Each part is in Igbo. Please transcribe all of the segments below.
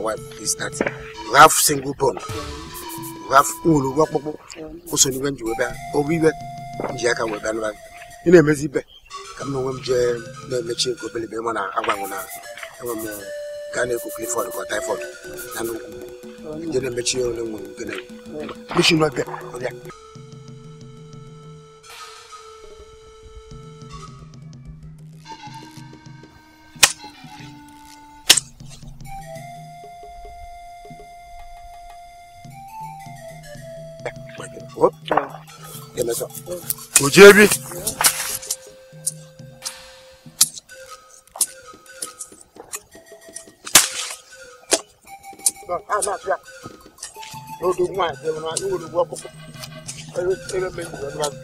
wife is that you have single you have ụgwọ ọkpụkpụ ụso n'iwe iwe nji aka ị na-emezi ibe ka m na onwe m jee na-emechi nke ma na agbanwe na enwe m a na-ekwu clifod na nnukwu je na-emechi Uje bi. N'odu nwa ase m na iwuru ụgwọ ọkpụkpụ. Ebe ebe mgbe njiri ọdụ azụ.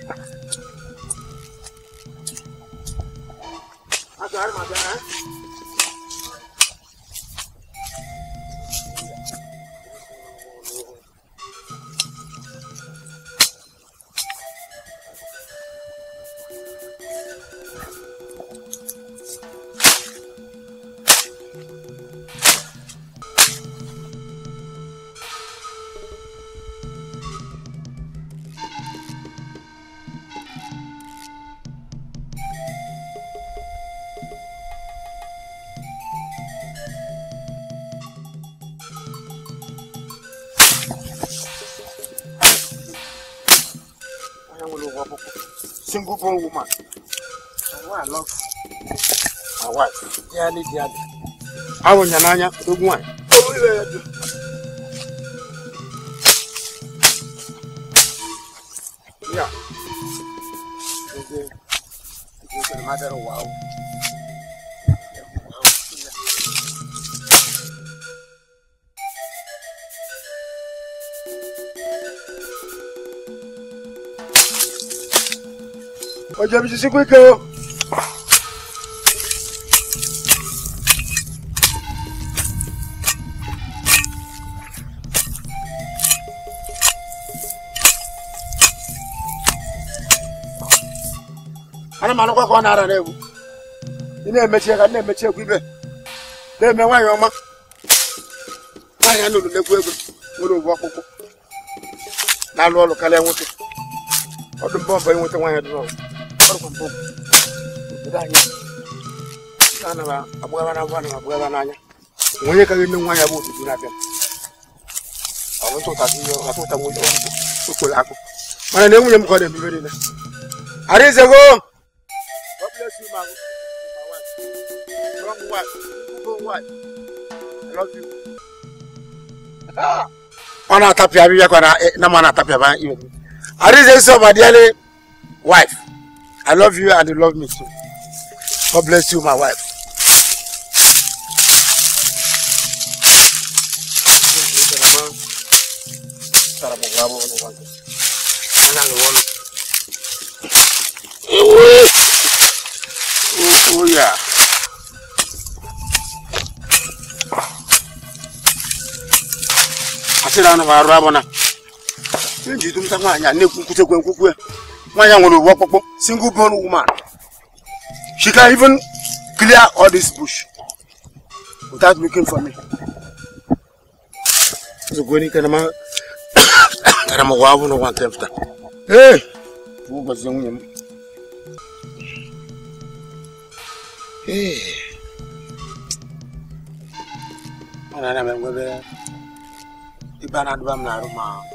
Azụ arịma bịara. single born woman. And why love my wife, dearly, dearly. I want your nanya, big one. Yeah. It's a matter of wow. O jẹ mi sisi kwike o. ana m anụkwa ka ọ na-ara n'egwu ị na-emechi ka na-emechi egwu ibe na-eme nwaanyị ọma nwaanyị a nụrụ n'egwu egwu nwere ogbu ọkpụkpụ na-alụ ọlụ karịa nwoke ọdụ mbọ mbọ inweta nwaanyị dị n'ọrụ ọrụ bụ obodo anyị onye ka nwa ya bụ otutu na-abịa mana na enwunye eh, m ka na ọ na na ma na arịze nsọ ma I love you and you love me too. God bless you, my wife. Oh yeah. Asira na varwa bona. Ndi tumtanga nya ne kukute kwenkukwe. Mwen jan wou nou wap wap wou, singou poun wou man. She kan even clear all this bush. Woutan wikin fwa mi. Zou gweni kene man, kene man wav wou nou wantem fta. Hey! Wou wak se yon yon mi. Hey! Mwen nan yon men gwe ve. I pa nan dwa mla yon man. Mwen nan yon men.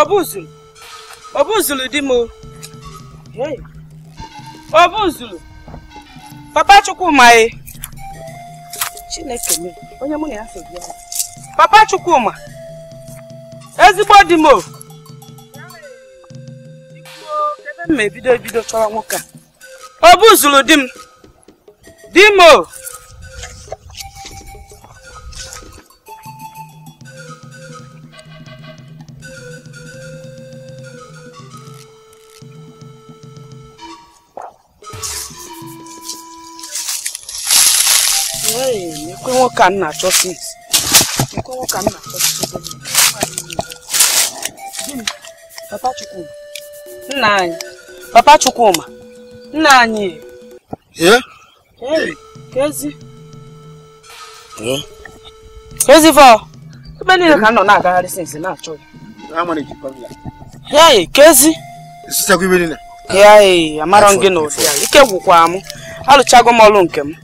ọ bụzụlụ ọ bụzụlụ di m ọ bụzụlụ papa chukwuma e chineke m onye mụ na ya sobi ya papa chukwuma ezigbo di m m ebido ebido chọrọ nwoke a ọ bụzụlụ di m di m nke nwoke a na-achọsi ikwe nwoke a na-achọsi Papa Chukwuma nna anyị Papa Chukwuma nna anyị kezi kezi fọ ebe niile ka nọ na-agagharị sinsi na-achọ ya hei ya amarọ gị n'ụdị ya ike gwụkwa m alụchago m ọlụ nke m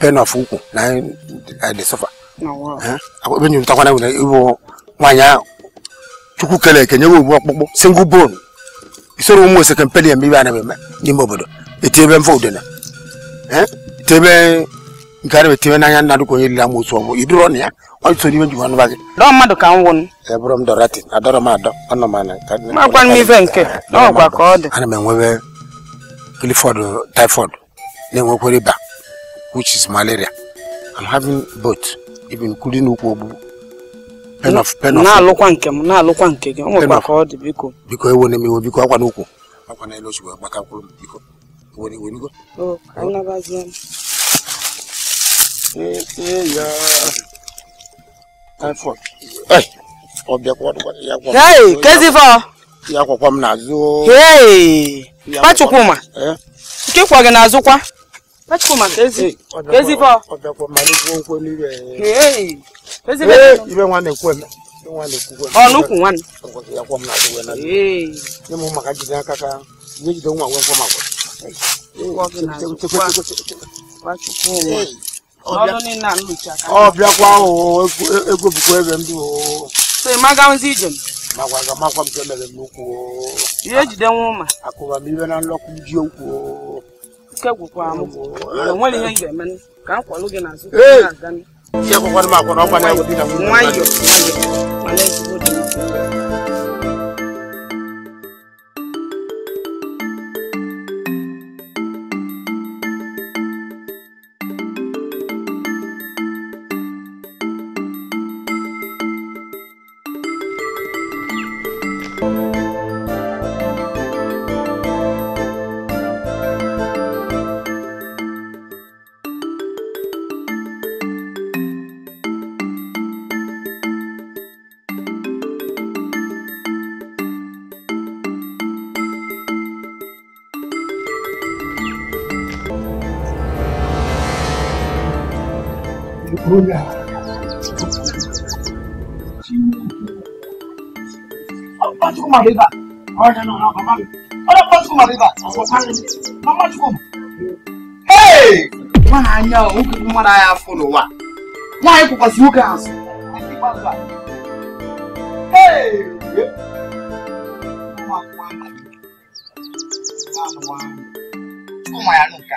pain of ukwu na e, anyị e dị sọfa ebe eh? e nyụtakwana nwere ịbụ nwaanyị ahụ chukwu kele eke nyewe ogbu ọkpụkpụ singụl bon isoro ụmụ oseke mpeli me ibe anaghị n'ime obodo etiebe mfe udene eh? etiebe nke a na-etibe n'anya onye lila m otu ọgbọ iduro ọ m ana magwa m ife nke n'ọgwa ka ọ ana m enwebe kilifọd taifọd na-enwekwere ịba which is malaria. I'm having both, even including Ukwobu. Pen of pen of. Na-alụkwa nke na-alụkwa nke gị, ọ nwekwa ka ọ dị biko. Biko ewo na m iwe biko akwa n'ụkwụ. Akwa na elu osigbo agbaka mkpụrụ m biko. Ewo na iwe nigo. O, anyị nabazie m. Etinye ya. Taifọd. Ei, kwa bịakwa ya gwa Hey, Hei, kezifọ. Ya kwa kwa n'azụ. Hei, kwa Chukwuma. Eh? Nke kwa gị n'azụ kwa. mechukwu maka ezi ezifọ ọnụkwụ ihe na ike gwụkwara school my river. Oh, no, no, no, Papa. Oh, no, come school my river. How much come? Hey! Wọn a nya o, nkiri mmadụ anyị afọ n'ụwa. Nwaanyị kwụkwasị nwoke azụ. Hey! Ụmụ akwụkwọ anyị. Ụmụ ya n'ụka.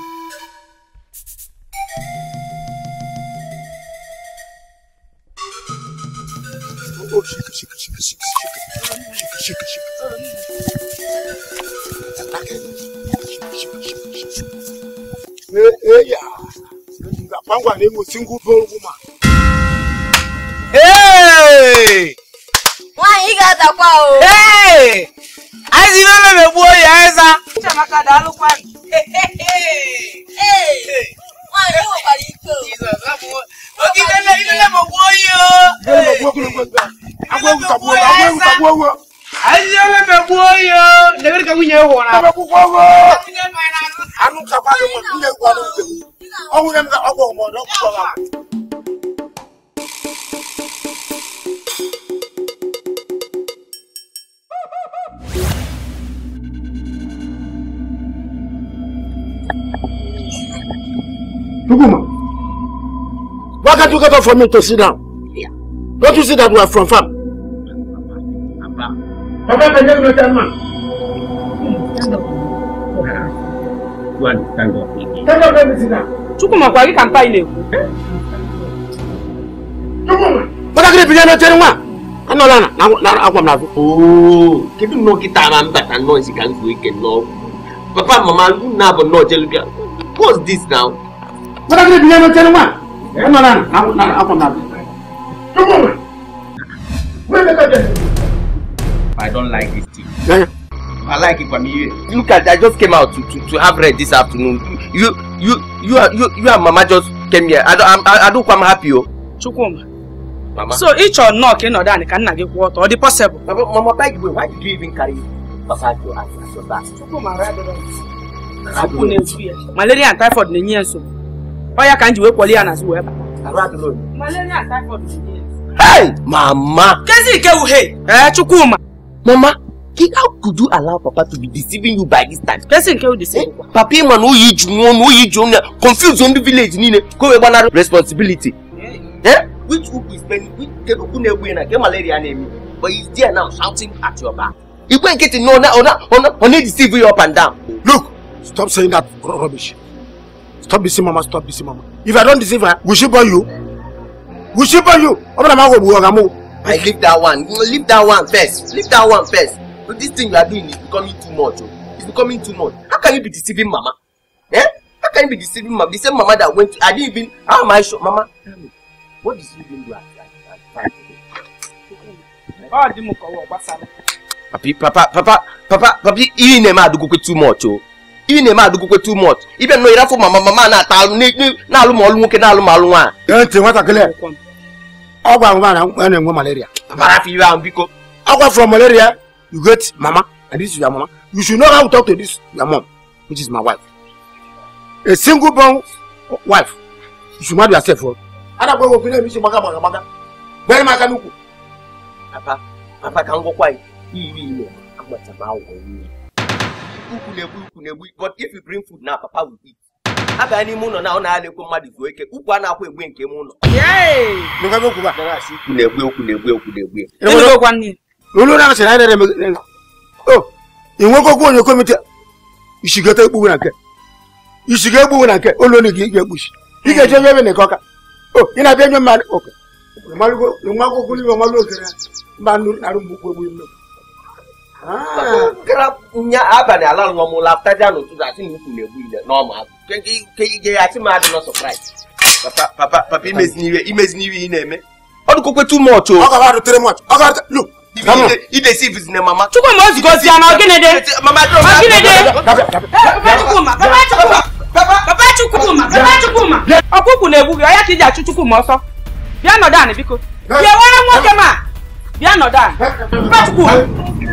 Pangwa ne mo single born woman. Hey! Nwaanyị ga adakwa o. Hey! Anyị si n'ime megbuo ya eza. Chamaka daalụkwanụ. Hey! Hey! Hey! Ogidele ilele mo wo yo. Ilele mo wo kulo mo gba. Agwe Nuguma, why can't you get up for me to sit down? Yeah. Don't you see that we are from farm? Papa, Papa, can you not tell man? Stand up. Go and stand up. Stand up, let me sit down. Chukuma, kwa hiki kampai leo. Chukuma. Baka kile pijana chenu mwa. Ano lana, na akwa mnavu. Oh, kita mamba tano isi kanzu Papa, mama, na abo What's this now? Mata kiri bilen no tenu ma. E no lan, na na akon na. Tumo ma. I don't like this thing. I like it from you. Look at I just came out to to, to have bread this afternoon. You you you are you, you and mama just came here. I don't I, I don't come happy oh. Chukwuma. Mama. So each or knock in order can not give water or the possible. Mama, mama beg you, why did you even carry Papa to as your back? Chukwuma, I don't My lady and typhoid for the nsogbu ọyá ka njiwe kwọli ya n'azụ wee bata. malaria typhoid dị Hey! Mama! Kezi Ikewu, hey! Eh, Chukwuma! Mama, how could you allow Papa to be deceiving you by this time? Kezi Ikewu deceive you. Papa ịma na oyi ju nwa na oyi ju nwa confuse ndị village niile ka o wee gbanarị responsibility. Eh? Which ukwu is spending, which kedu ukwu na-egbu ya na nke malaria na-eme? But he's there now shouting at your back. You get to know now. Igwe nkịtị na ọ na-edeceive you up and down. Look! Stop saying that rubbish stop busy mama stop busy mama if i don't deceive her will she born you will she born you ọbẹ̀rẹ̀ máa wọ̀ wọ̀ ọ̀gá mọ́. i leave that one leave that one first leave that one first but this thing you are doing is becoming too much o oh. it's becoming too much how can you be deceiving mama eh how can you be deceiving mama the same mama that went to i didn't even how am i sure mama tell me what is you doing? Papa, at that time. báwa dín mú kọ́wọ́ ọ̀gbá sáré. papi papa papa papa papi iye ní ẹ̀ máa dúkú pé too much o. Oh. ị na-eme adụgokwe too much ịbịa nọ ịrafụ mama mama na-ata alụ na-alụ ma ọlụ nwoke na-alụ ma alụ nwaanyị ọ gwara m na na-enwe malaria ahụ biko ọ gwafụrụ malaria you get mama and this is mama you should know how to talk to this your mom which is my wife a single born wife you should marry yourself oh. adakwa ewu opinion mission gbaga gbaga gbaga bere m n'ukwu papa papa ka m gwakwa iri ime agbata m awụghị ukwu na-egbu ukwu na-egbu but if you bring food na papa will eat a n'ime ụlọ na ọ na-alekwu mmadụ zuo ike ukwu a na-akwụ egbu nke m ụlọ ukwu na na na na na o oh, ịnwekwa okwu onye komite isigota ekpugbu na nke isiga ekpugbu na nke olu onye gị ga-ekpuchi ị hmm. ga-eje nye ebe na nke ọka o oh, ị na-abịa nye mmadụ ụka nwa akwụkwọ n'ime ọmalụ okere mba narụ nye abalị ala lụọ m lapụta n'ụtụtụ asị na ukwu na-egbu ile n'ọma ke ya asị m adị nọ Papa papa papa ị na-eme ọ dụkwekwe too much o idesi ne mama chukwuma o zigozi ya na ogịnede mama ogịnede papa chukwuma papa papa papa na-egbu gị ọya ka iji achụ chukwuma ọsọ bịa nọdụ anị biko bịa were nwoke ma papa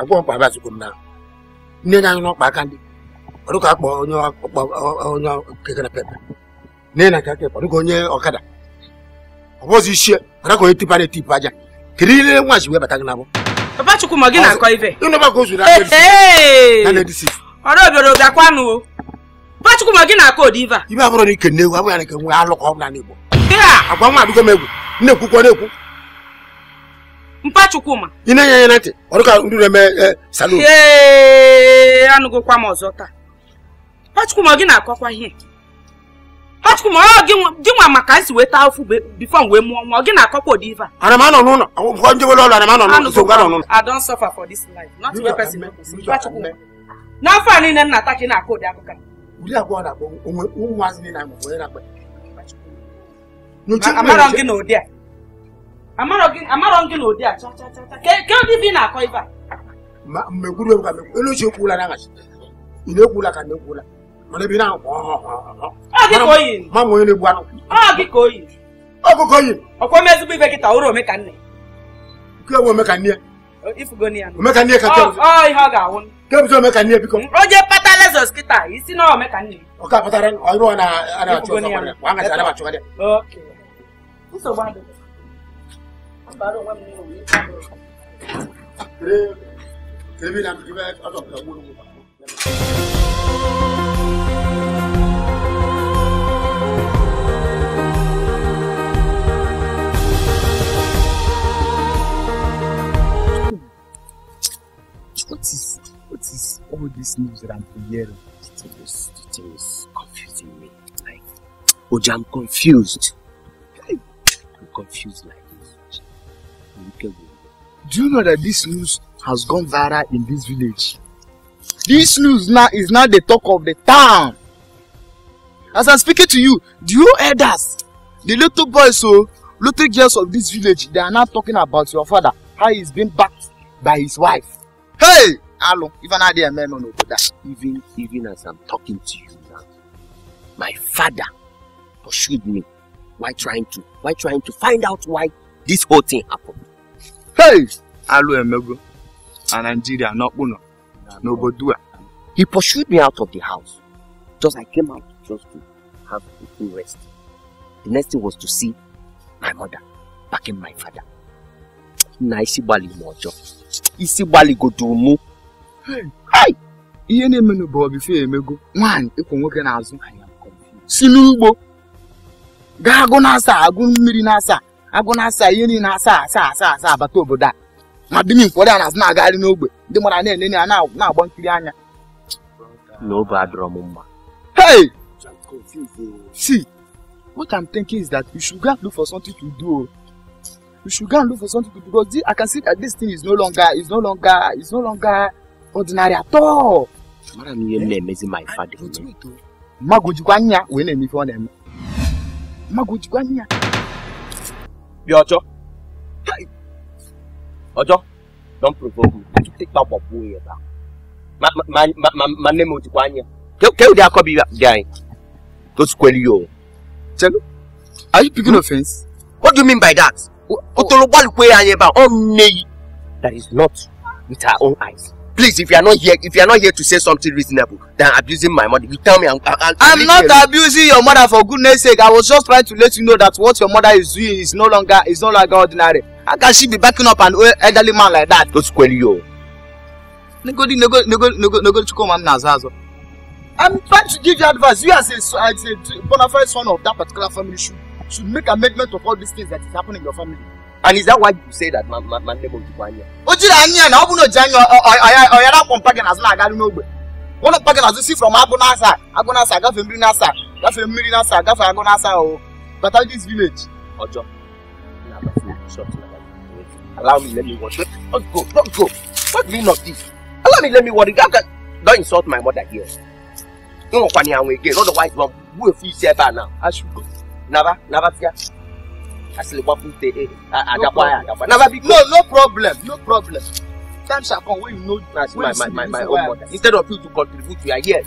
agwọ mkpa abịazikwu m na nne anyị n'ọkpa aka ndị ka akpọ onye onye kekere pepe nne na aka kekpa ọdụka onye ọkada ọ bụzi ichie ọdụka onye tipa na-etipu aja kedu ile nwa ji wee bata gị n'abụ papa chukwu ma gị na-akọ ife ka o zuru ọrụ obere obi chukwu ma gị na-akọ ụdị ife a ibe abụrụ na ike nne ewu abụghị na ike nwe alụkọ ọ bụla n'igbo agwa nwa m egwu nne ekwukwa na-ekwu mpa chukwu ma ị na-enye ya na ntị ọ dịka ndị na-eme e, salon ee anụgokwa m ọzọ taa mpa chukwuma gị na-akọkwa ihe mpa ma ọ gị nwa maka nsi weta ofu bifo mgbe mụọ nwa ọ gị na-akọkwa ụdị ife a ana m anọ n'ụlọ akwụkwọ njewele ọlụ ana m anọ n'ụlọ nsogbu anọ n'ụlọ I don't suffer for this life not where person mpa chukwuma n'afọ a niile nna ata ka ị na-akọ ụdị akụkọ ụdị abụọ na-akpọ ụmụazị niile na-akpọ onye na-akpa amara m gị na ụdị a amarọ gị na ụdị a ke ụdị ibe ị na-akọ a elu ekwula na ka na ọ ọ ma onye na ọkụkọ yi ọkwa m ezigbo ọ Ọ ya ka ke bụzi omekanne ọ. Ọ ọ ọ ọ ka ọ ọ Ọ What is what is all this news that I'm hearing? It is it is confusing me. Like, Oja, I'm confused. I'm confused. Like. Do you know that this news has gone viral in this village? This news now is now the talk of the town. As I'm speaking to you, do you hear elders, the little boys, so oh, little girls of this village, they are now talking about your father, how he's been backed by his wife. Hey! Hello, even I didn't know on that. Even, even as I'm talking to you now, my father pursued me. Why trying to, why trying to find out why this whole thing happened? Hey! Emego and Nigeria, not Uno, no Bodua. He pursued me out of the house. Just I came out just to have a full rest. The next thing was to see my mother backing my father. Na isi gbali m ọjọọ. Isi gbali godoro mụ. Hai! Ihe na-emenụ bụ ọbife emego. Nwaanyị ịkwụ nwoke n'azụ. Si n'ugbo. Gaa agụ n'asa agụ mmiri n'asa agụ na-asa ihe niile asa asa asa asa abata obodo a ma di ụfọdụ a na-azụ na-agagharị n'ogbe ndị mara na-enene ya na-agba nkiri anya n'obe adọrọ m hey oh. see what i'm thinking is that we should go and look for something to do we oh. should go and look for something to do because i can see that this thing is no longer is no longer is no longer ordinary at all eh? oh. anya wee na-eme ọ na-eme mmadụ ojikwa anya Be bí ọjọ́ ọjọ́ Don't provoke me to take that wabu yẹn ba ma ma ma ma My name is o Can kọ anya kéwù di akọ bi di ayin tó ti kọ are you picking hmm? offence? What do you mean by that? Otolobali kwe anyi ba, ọ nne yi. That is not with our own eyes please if you are not here if you are not here to say something reasonable than abusing my mother you tell me i'm i'm, I'm not alone. abusing your mother for goodness sake i was just trying to let you know that what your mother is doing is no longer is no longer ordinary how can she be backing up an elderly man like that. don't square you. negodi negodi negodi negodi chukwuma nna aza azọ. i'm trying to give you advice you as a as a bona fide son of that particular family should should make amendment of all these things that is happening in your family. And is that why you say that my, my, my name is Jibanya? Ojira Anya, na obu no Janya, oyara kompagen as na agari n'ogbe. One of pagan as you see from Agonasa, Agonasa, gafe mmiri n'asa, gafe mmiri n'asa, gafe Agonasa o. But at this village, Ojo. Allow me, let me watch. Don't go, don't go. What do you not this? Allow me, let me worry. Don't insult my mother here. No one can hear me again. Otherwise, one will feel safer now. I should go. Never, never fear. Eh, no no problem no problem Time shall come when you know as my my my, my own mother instead of you to contribute you are here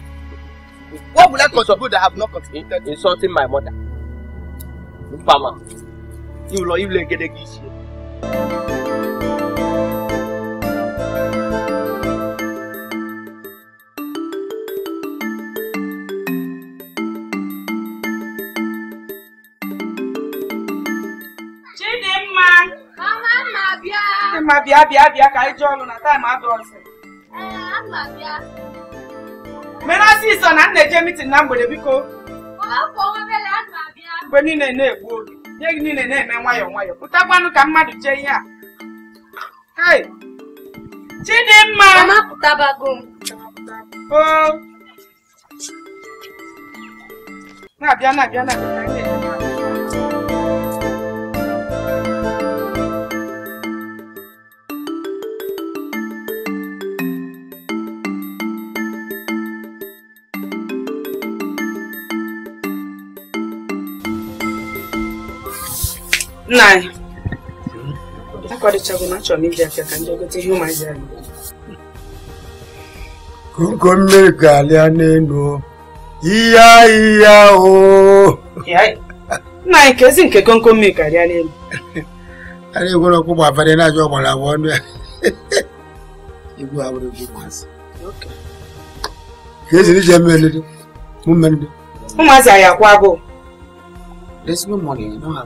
what would i contribute that i have not contributed insulting my mother nfama iwulọ iwulọ egedege iṣẹ. mma bịa bịa bịa ka anyị jụọ ọnụ na taịm adọsị menasị iso na nna eje mitin na mgbede biko mgbe niile na-egbu oge ihe gị niile na-eme nwayọọ nwayọọ pụtakwanụ ka mmadụ jee ihe a Chidimma na-abịa na-abịa na-abịa koko anyị na achọrọ m iji ka ndị ihe ụmụazị anyị mmiri ga-alịa n'elu ihe ahịhịa oo nna anyị ka ezi nke konko mmiri karịa n'elu ya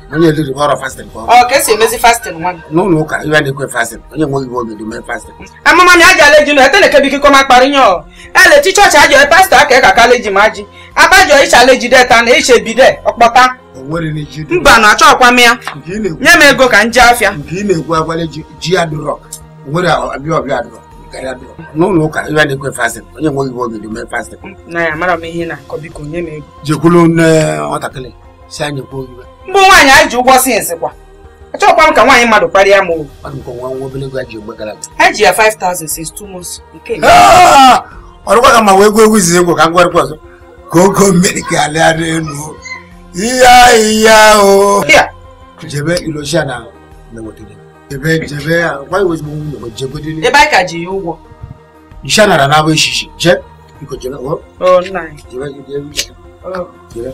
onye eliri ọrụ fasting ka ọ ka esi emezi fasting nwa n'ụlọ ụka iwe na-ekwe fasting onye nwe igbo obi eme fasting amụma mi aja leji na etene kebi kiko ma kpari nyo ele ti chọọchị ajọ e, pastọ aka ịka ka e leji ma ji abajọ icha leji deta na iche e bide ọkpọta mba na achọ ọkwa m ya nye m ego ka m ji afịa nke ị na-ekwu agwale ji adụrọ nwere ọbịa ọbịa adụrọ n'ụlọ ụka iwe na-ekwe fasting onye nwe igbo obi eme fasting na ya mara m ihe na-akọ biko nye m ego jekwulu nne nwatakịrị si anyị kwuo iwe mbụ nwaanyị anyị ji ụgwọ sins kwa achọkwa m ka nwaanyị mmadụ kparịa m since two months nke ah! ọrụkwa ka ma wee gwa egwu izizi egwu ka m gwarịkwa ọzọ ka ogo mmiri ka alịa n'elu ihe ya o jebe ilosia na jebe jebe ah, gwa iwe ezigbo nwunye jegodiri ebe anyị ka ji ya ụgwọ isha nara n'abụ echichi je biko oh, jebe jebe jebe oh.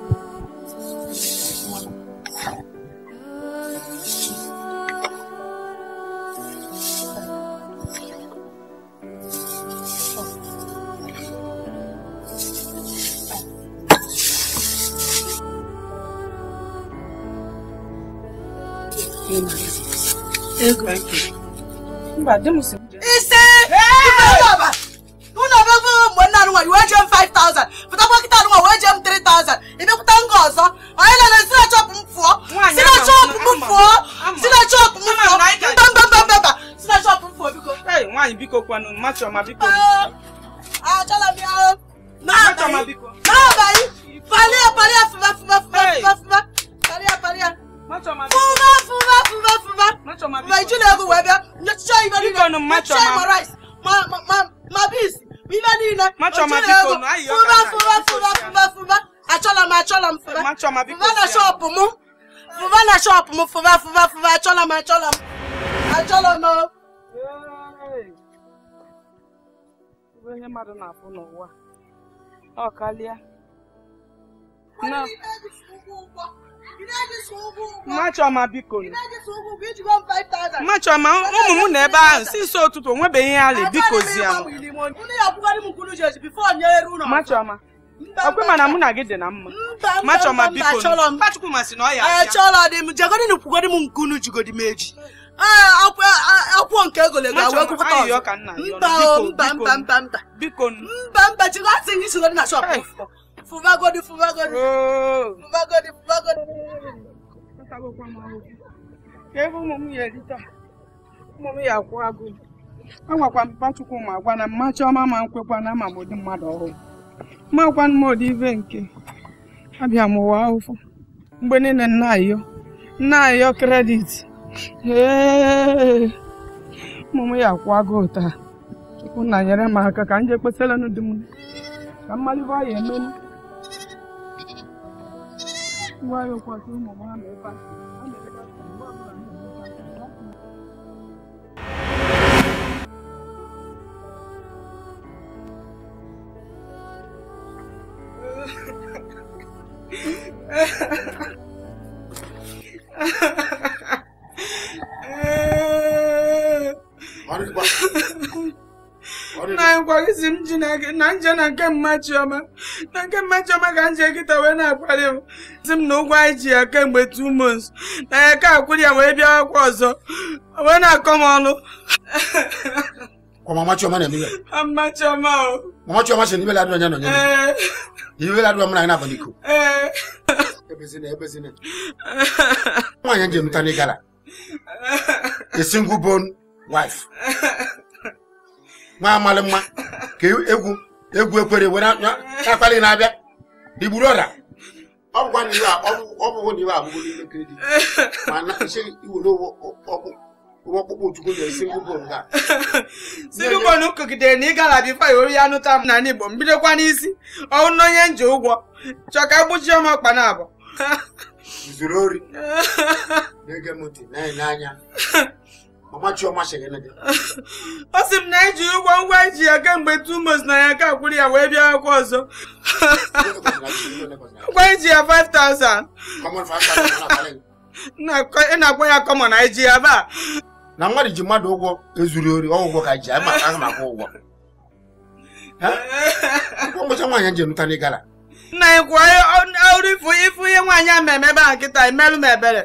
Mba, di m si Ise! Unu abịa mgbe nna anụnwa iwe eje m 5,000 pụtakwa kịta anụnwa wee je m 3,000 ịbịakwụta nga ọzọ onye nọ na si na chọpụ m fụọ si na chọpụ m fụọ si na chọpụ m fụọ mbambambamba si na chọpụ m fụọ biko nwaanyị biko kwanụ mma chọma biko achọla m ya n'abalị n'abalị palịa palịa fụba fụba fụba fụba palịa palịa Fuba, fuba, fuba, fuba. My children go where they share even in share my rice, my my my my beans. Even in my children go fuba, fuba, fuba, fuba, fuba. Achola, my achola, fuba. Fuba na shop mu. Fuba na shop mu. Fuba, fuba, fuba. Achola, my achola. Achola no. ihe mmadụ na-afụ n'ụwa ọ kalịa na Mmachioma biko Mmachioma ụmụ m na ebe ahụ si nso ụtụtụ onwebeghị ya ala bikozie Mmachioma ọkwe mana mụ na gị dị na mma Mmachioma biko Mkpachukwu masị na ọ ya achọrọ kwugodi m nkunu jigodi m eji akwụkwọ nke egolego agwakwụkwọ mba mba mba mba mba mba mba jigọ asị gị sigodi na shọpụ fụbagodi godi fụbagodi godi! ka ebe ụmụ m ya erita ụmụ m ya akwụ agụ agwakwa m pachukwu ma agwa na mma chiọma ma nkwekwa na ama ụdị mmadụ ọhụrụ makwa m ụdị ive nke abịa m ụwa ahụfụ mgbe niile nna ayọ nna ayọ kredit ee ụmụ m ya akwụ agụ taa chukwu nyere m aka ka ka mmalite qua rồi qua xuống một năm để qua Mari kita na anyị kwarizi m na nje na nke mma chioma na nke mma chioma ka nje nkịta wee na-akwari m si m na ụgwọ anyị ji ya kemgbe two months na ya ka akwụrụ ya wee bịa akwụ ọzọ wee na-akọ m ọnụ mama chioma na-eme ya chioma chioma na wife nwa amalị mma ka e- egwu egwu ekwere were akpali na-abịa digburu ọra ọ bụkwa na n'ime na ịgala ya nụta m n'ala n'isi ọnwụ na onye nje ụgwọ chọka ka gbuchie m ọkpa zuru na-ege m ọ sị m na eji ụgwọ ngwa eji ya kemgbe tumos na ya ka kwuru ya wee bịa akwụkwọ ọzọ ngwa eji ya 5000 ị na-akpọ ya kọmọ na eji ya ba na mmadụ ji mmadụ ụgwọ ezuru ori ọgwụgwọ ka ji ama na maka ụgwọ ngwụcha nwaanyị ji nụta n'ịgara nna anyị kwụọ ọrụ ifu ihe nwaanyị a mmemme ebe a nkịta emelụ m ebere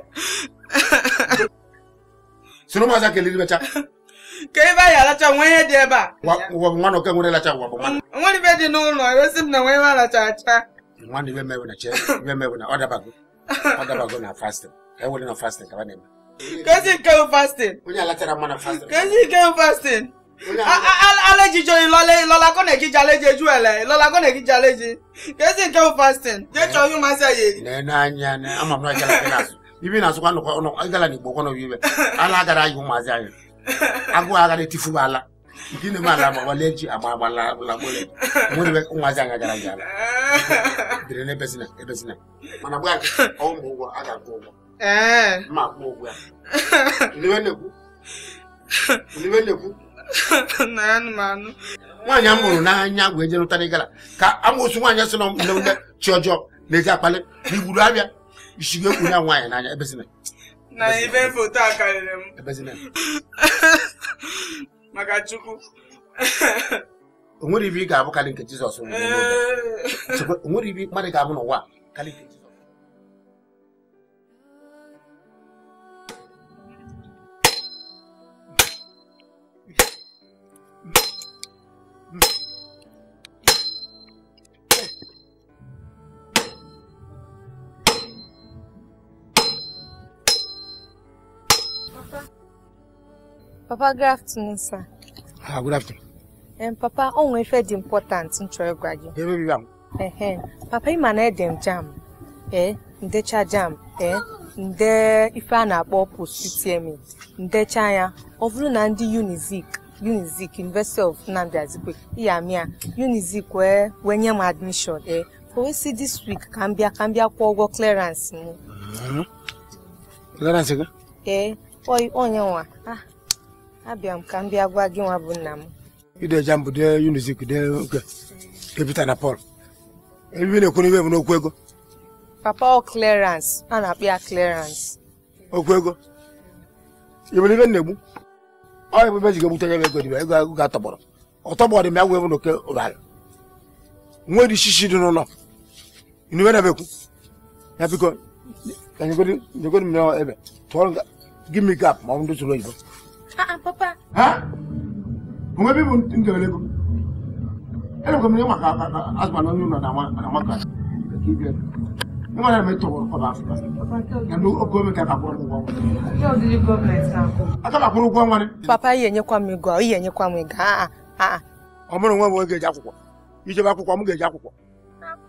sino maza ke liri bacha ke ba ya la cha nwe de ba wa ngwana ke ngone la cha wa ngwana ngwana be di no no e sim na nwe ba la cha cha ngwana e be mewe e e na che be mewe na order bago order bago na fasting e wole na fasting ka banema kasi ke fasting unya la tera mwana fasting kasi ke fasting alejijo ìlọlá kọ́nà ìkíjà léje ju ẹ̀lẹ̀ ìlọlá kọ́nà ìkíjà léje kesi ke fasting jẹ́ chọ́ yún máa ṣe yé. nẹ́ẹ̀ náà ń yan ní amọ̀ náà jẹ́ lápẹ́ náà sùn. ibe na-azụkwa ịgala n'igbo kwana obibe ala agara anyị ụmụazị anyị agụụ agara etifuba ala nke na-eme ala agbagbale ji agba agbalagbalagbalị nwere ụmụazị anyị agara gị ala dịrị ebe ebezina mana gba ụgwọ a ga-akwụ ụgwọ akwụ ụgwọ ya na-ekwu na-ekwu nwaanyị a mụrụ n'anya gwa eje nụtara ịgala ka amụsụ nwaanyị sị na ndị chi ọjọọ na-eji akpali na igburu abịa jigwe kun na nwaanyị n'anya ebe si na even ibe foto a karịrị m ebe si na maka chukwu o nwere ibe ị ga-abụ karị nke jizọs nwere ibe mmadụ ga-abụ Papa, good afternoon, Ah, good afternoon. Um, papa, ọ efe ife dị important m chọrọ ịgwa gị. Ebe bi ya Papa, ị na edem m jam, ee, eh, ndecha jam, eh nde ife a na-akpọ post-UTME, ndecha ya, ọ bụrụ na ndị Unizik, Unizik, University of Nnamdi Azikwe, iya mịa, Unizik wee wee nye m admission, eh o we si this week ka m bịa ka ụgwọ clearance m. Mm-hmm. Clearance gị? Eh, onye nwa, ah. abịa m ka m bịa gwa gị nwa bụ nna m ideja m bụ de unizik de oge Pita na Pọl ebe na-ekwu ibe m n'okwu ego papa clearance a na-akpọ ya clarence. okwu ego ebere ibe na-egbu ọya bụ ebe ji ga-egbute ya ego dibe ego agụ ga-atọgbọrọ ọtọgbọrọ dị ya gwa ebe n'oke ụrara nwere ishishi dị n'ụlọ ibe na-ebekwu ya biko nyegodi m ebe tụọrọ gị mi gap ma ọ bụ ndị tụrụ oyibo Ah, ah, papa. Ha? Kuma bi mun tin gele ko. Ele ko mi ma ka asma no nuna na ma na ma ka. Ki bi. Ni ma na me to ko ba Africa. Ya do ko mi ka ka ko ko. Yo di government sa ko. Ata ka ko ko ngani. Papa ye nye kwa mi go, ye nye kwa mi ga. Ah. Ọmọ nwa wo ge ja akwụkwọ. Ije ba akwụkwọ, ọmụ ga-eje akwụkwọ.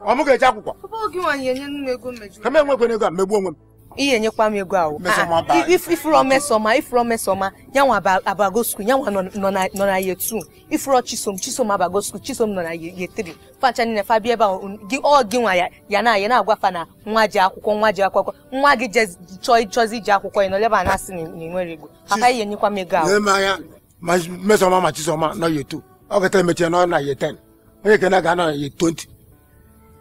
Ọmụ ga-eje akwụkwọ. Papa ogi nwaanyị enye nnu ego mmejọ. Ka m enwekwe ego a mmegbuo onwe m. ihe enyekwa m ego ahụ ah, ifuro mesoma ifuro mesoma yanwa abago skul yanwa nọ na ye 2 ifuro chisom chisom abago skul chisom nọ na ye 3 facha nile fa bịa ebe ahụ ọ gị nwa ya na ya na-agwa fa na nwa ji akwụkwọ nwa ji akwụkwọ nwa gị chọzi iji akwụkwọ ya nọleba na-asị na ịnwere ego papa ihe enyekwa m ego ahụ mesoma ma chisoma nọ ye 2 ọ gata emechie nọ na ye ten onye kena ga-anọ na ye 20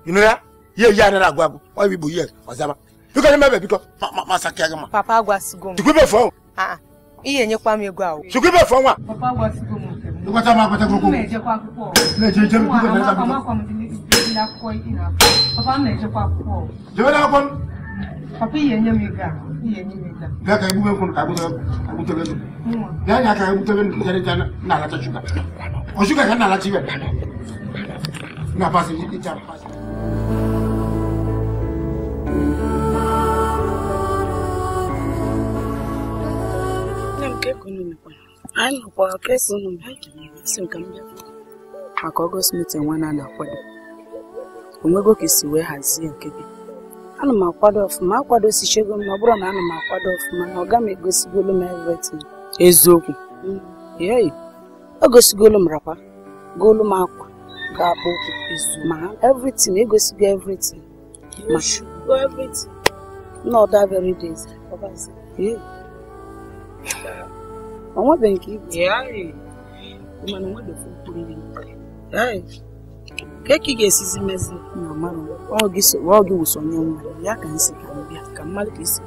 ịnụ ya ihe yi a na-agwa bụ ọ bụ igbo ihe ọzaba biko nye mebe biko masaki aga ma papa agwasigo m chukwu ibe fụọ ihe enyekwa m ego ahụ chukwu ibe fụọ nwa papa agwasigo m nke m nkwata m akwata akwụkwọ m na-ejekwa akwụkwọ na-ejeje m biko na-ejekwa akwụkwọ papa m na-ejekwa akwụkwọ jebe na akwụkwọ m papa ihe enye m ego ahụ ihe enye m ego bịa ka egbube nkwụ ka agbutere ego bịa nya ka egbutebe nkwụ na-alacha shuga o shuga ka na-alacha ibe na pasị ịcha pasị anyị nọkwara kesi ụnụ si m ka m bịa maka ọgọst mitin nwa na na-akwado onwego ka isi wee hazie nke gị ana m akwado ọfụma akwadosichego m ọ bụrụ na ana m akwado ọfụma na ọ ga m egosigolu m everything eziokwu mm. yei o gosigolo m rakwa golu m akwa ga akpọ ụkwụ ma everything egosigo everything ma everything na ọda very ọbazi ọ nwebeghị nke ibu mana nwebefe mkpụrụ ihe e. ka ka ị ga-esizi mezi na mmadụ ọ gị wụsonye nwa ya ka m ka m bịa ka mmadụ ka isi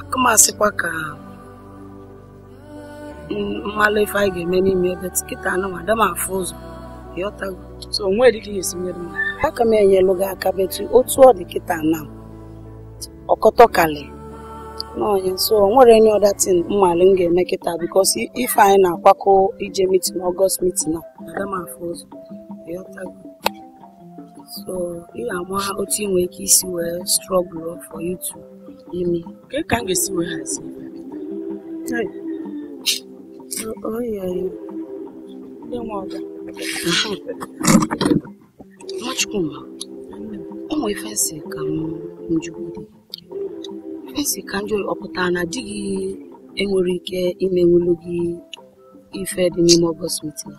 akụmasịkwa ka mmalụ ife anyị ga-eme n'ime ebe tikịta anụma ada m afụ ụzọ ịghọtago so onwe dị ka esi mere m aka m enyelụ gị aka betu otu ọ dị kịta na ọkọtọkalị n'ọhịa so o nwere any other thing mmalị m ga-eme kịta bikos ife anyị na-akwakọ ije mitin ọgọst mitin a aga m afụ ụzọ so ị ga-ama otu ị nwere ike isi wee strọgụl for you to ime ka m ga-esi wee hazi Nwachukwu, ụmụ ife si ka m njugide esi Kanjoy ọ pụtara na di gị enwere ike ị na gị ife dị n'ime ọgọst mitin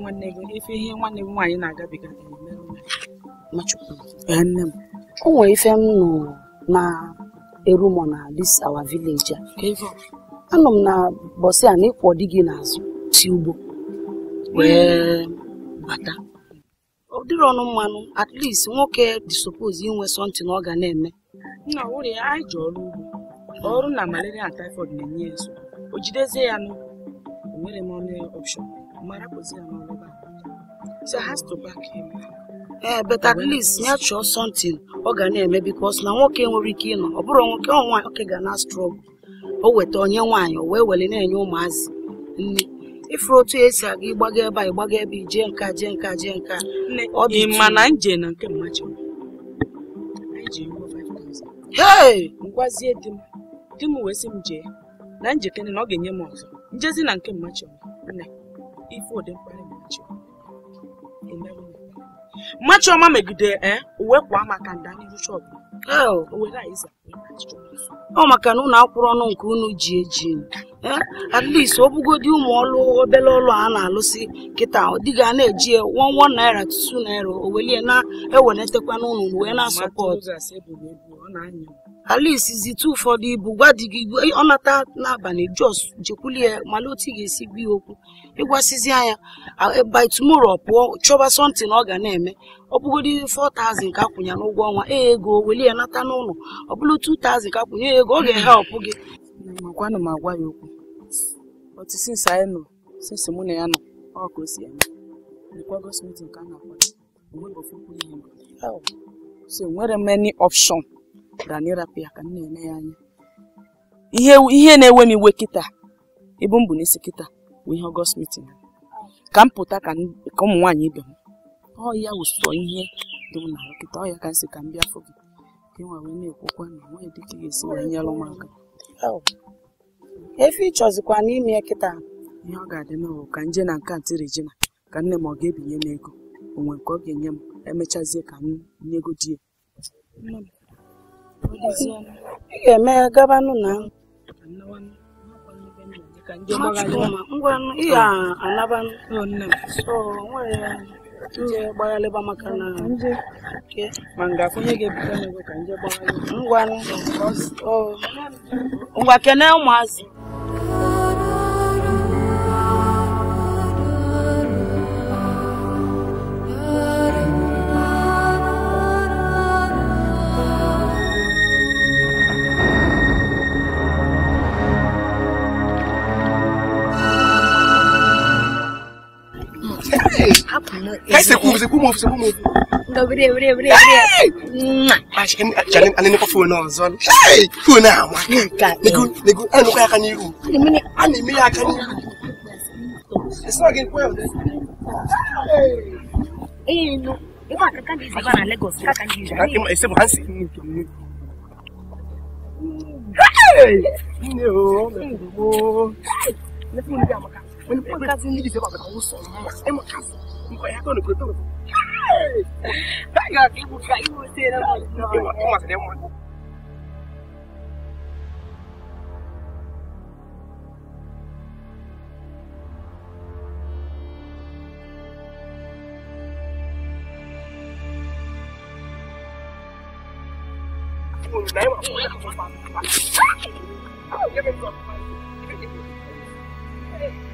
nwanne gị ife ihe nwanne m nwaanyị na-agabiga o nwere ife m nọ na erumo na this our village a anọ m na bọsị n'ịkwọ na ịkwọ di gị n'azụ si ugbo wee bata ọ dịrị ọnụ mmanụ at least nwoke dị suppose inwe something ọ ga na-eme nna wụrụ ya anyị ji ọrụ ugbo ọrụ na malaria na typhoid na-enye ya nso. o jidezie ya nụ enwere m ọnụ option mara kụzi ya n'ọrụ so has to back him ee eh, but at least ya chọọ sọntịn ọ ga na-eme because na nwoke nwere ike ịnọ ọ bụrụ nwoke ọ nwaanyị oke ga na struggle o weta onye nwaanyị o wee were na-enye ụmụazị nne ifuru otu esi aga ịgbaga ebe a ịgbaga ebe ije nka jee nka jee nka ọ dị mma na nje na nke mmachi hei ngwazie di m di m wee sị m jee na njekere na ọ ga-enye m ọzọ njezi na nke mmachi nne ife dị mkpa mmachi mmachi ọma megide eh, uwe kwa maka nda n'iru ọ maka na ụnụ akwụrụ ọnụ nke unu ji eji at least ọ bụgodi ụmụ ọlụ obele ọlụ a na-alụsị kịta dịga na-eji wọn wọn naira tutu naira o welie na-ewenetakwa n'ụlọ wee na-asọpọt at zite ụfọdụ ibu gwa di gị ọ nata n'abalị jos jekwulie mana otu ị ga-esi gbuo ya okwu ịgwasịzi anya by tomorrow pụọ chọba something ọ ga na-eme ọ bụgodị 4000 ka akwụnye n'ụgwọ ọnwa ee ego welie ya nata n'ụlọ ọ bụrụ 2000 ka akwụnye e, ego ọ ga ọpụ gị makwanụ ya okwu otu anyị nọ ya nọ ọ ka o si eme requirements meeting ka a e na ihe so nwere option ya ka m na eme ya anya ihe na-ewe m iwe kịta ebe m bụ n'isi kịta bụ ihe ka m pụta ka ụmụ nwaanyị ibe ọ ya ụsọ ihe dị dum na nkịta ọ ya ka nsị ka m bịa fụ gị ka nwa wee na-ekwukwa na nwaanyị dị ka ga-esi wee nyere m aka efe ịchọzikwa n'ime kịta ihe ọ ga-adị n'ụlọ ka nje na nke ntị Regina ka nne m ọ ga-ebinye m ego onwe nke ọ ga-enye m emechazie ka m nye ego di ya ị ga-eme gabanụ na ngwa ị ga-anabanụ nje gbaghalịba maka na nje ma ga-afụ onye ga n'ego ka nje gbaghalịba oh. ngwa kene ụmụazị kai sai ku sai ku mu sai ku mu ga bire bire bire bire a shi kan janin an ne kofi wannan zon hey ku na ma ne ku ne ku an ku ya kan yiru ne an ne ya kan yiru it's not getting well eh no Iwa kakan di sana Lagos kakan di sana. Ima ese bu hansi. Hey! Ne o, ne o. Ne fun ni amaka. Wani podcast ni di se ba ka wo so. Ema kasi. mko yako ni kutoka Kaga kibu kaibu tena mwanzo. Kama sasa mwanzo. Hey!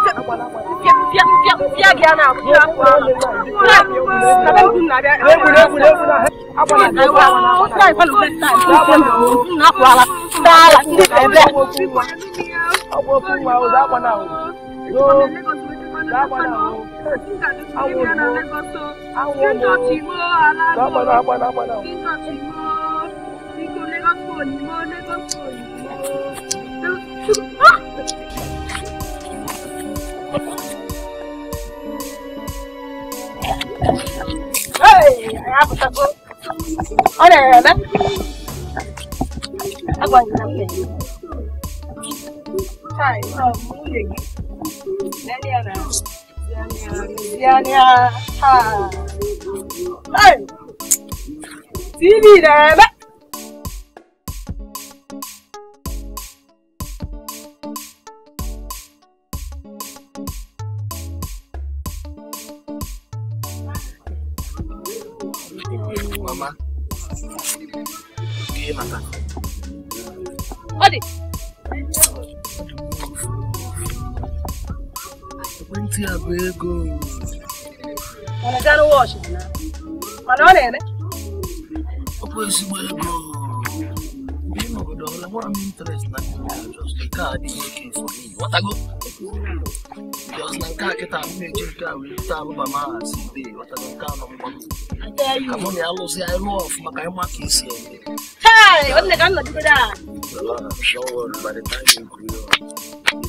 Lagos kò ní mọ́ Lagos kò ní. sapato. Ora, ora. Aguanta bene. Sai, no, muoio. Daniela. Daniela. Ha. Ai. Sì, direi. ọtago jos na nke a kịta m na-eji nke a wee ta alụba ma ha si be ọtago nke a nọ mgba amụ na ya lụzi anyị lụọ ọfụma ka anyị ma ka esi eme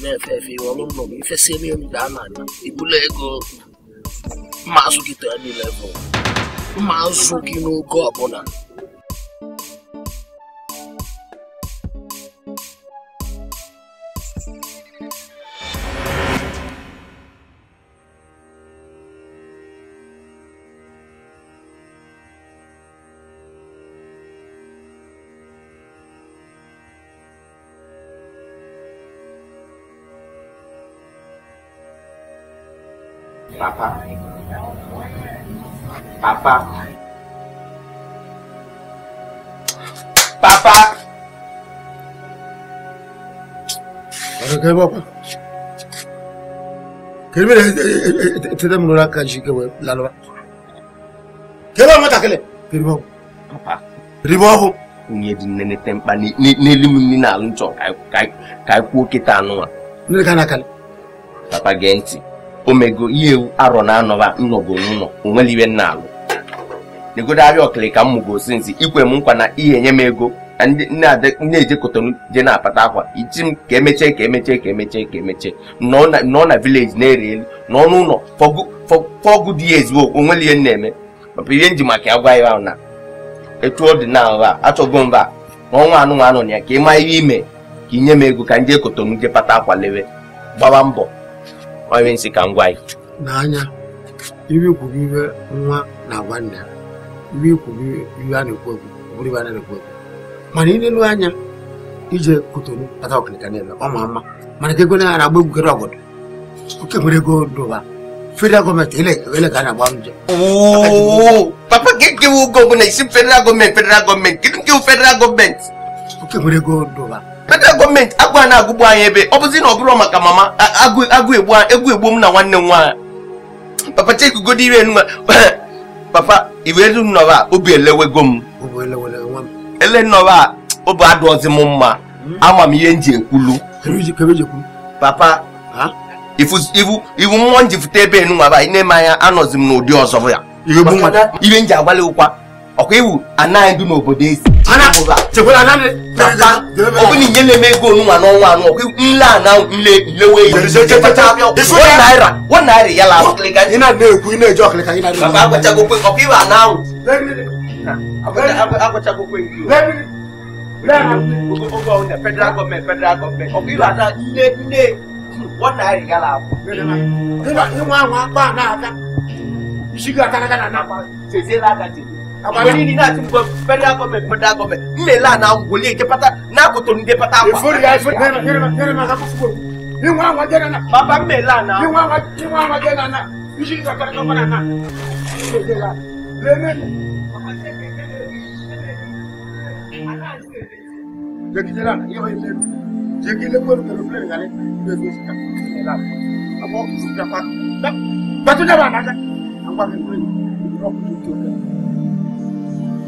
na-efe efe iwe ọrụ nnọọ ifesi eme elu daa na ibula ego mma azụ gị tee niile bụ mma azụ gị n'oge ọbụla Papa. Papa. Papa. Kai baba. Kai me ta da mun raka shi kawai lalwa. Kai ba mata kale. Kai ba. Papa. Ribo ho. Ni din ne tempa ni ni limin ni na luncho kai kai kai ko kitanu. Ni kana kale. Papa genti. omego ihe ewu arọ na anọba nnọgo n'ụlọ onwere iwe nna alụ negodagharịa ọkịlịka mmụgosi nsi ikwe m nkwa na ihe enye m ego na na kotonu je na-apata akwa iji m ka emechie ka emechie ka emechie ka emechie nọọ na vileji na-ere elu n'ọnụ n'ụlọ fọgụ dị ya ezigbo onwere ihe na-eme maka ihe nji maka ya gwa ya na etu ọ dị na nha achọgo mba n'ọnwa anụnwa anọ na ya ka ị maa ihe ime ka inye m ego ka m kotonu je pata akwa lewe gbawa mbọ onye nsị ka m gwa gị n'anya iwe kwuru iwe nwa na-agwa nna ya iwe kwuru iwe a na-ekwu ekwu bụrụ iwe a na-ekwu ekwu mana ilelu anya ije kotonu kpata ọkịnịka niile ọ ma mma mana ka ego na agba egwugere ọgọdọ oke nwere ego dụba federal gọọmenti ele ka a na-agba nje papa ka ekewe oge ọbụla isi federal gọọmenti federal gọọmenti kedu nke federal gọọmenti were gold ụwa federal gọọmenti agụ a na-agụgbu anyị ebe ọ bụzi na ọ bụrụ maka mama agụ egbu egbu m na nwanne m nwaanyị papa chekugodo ire enu papa iwe elu obi elewego m ele nnọrọ obi adụọzi m mma hmm? ama m ihe m ji ekwulu papa iwu mmụọ m ji fute ebe enu anyị na-eme anya anọzi m n'ụdị ọzọ ya ihe m ji agbalị ụkwa ọkwa iwu anaghị ndụ n'obodo ezi ọ bụ na inye na-eme ego onunwa n'ọnwa anụ ọkwa iwu nle ana nle nlewe naira naira ya la na-ekwu ị na-eji ọkịlịka gị ọkwa iwu ana ahụ agwachagokwe federal gọọmenti federal gọọmenti ọkwa iwu ana nne nne one naira ya la abụ isigo akara gana na akwa seziela aka jiri àwọn ní nínú àti gbọ federal government federal government nlela na wòlé ètè pátá n'a kò tó ní dé pátá wa. ìfori ya ìfori yẹrẹ yẹrẹ yẹrẹ ma ka fún fún mi wọn àwọn jẹ nana. baba nlela na. wọn àwọn jẹ wọn àwọn jẹ nana bisi ní sọkẹrẹ tó fana na. lẹ́mẹ̀. jẹ́kíjẹ́ la yẹ́wọ́ yẹ́ lẹ́nu jẹ́kíjẹ́ lẹ́kọ́lù kẹlẹ́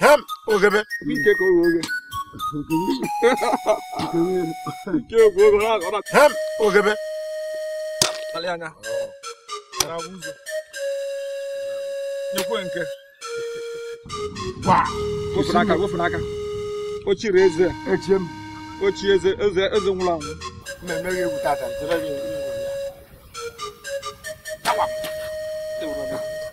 哈姆，欧杰贝，米切科欧杰贝，欧杰贝，哈姆，欧杰贝，阿里安娜，拉乌苏，纽奎恩克，哇，欧布拉卡，欧布拉卡，我去惹事，我去，我去惹事，惹事惹事，乌拉，慢慢给不打仗，再来一个，打吧，对不啦？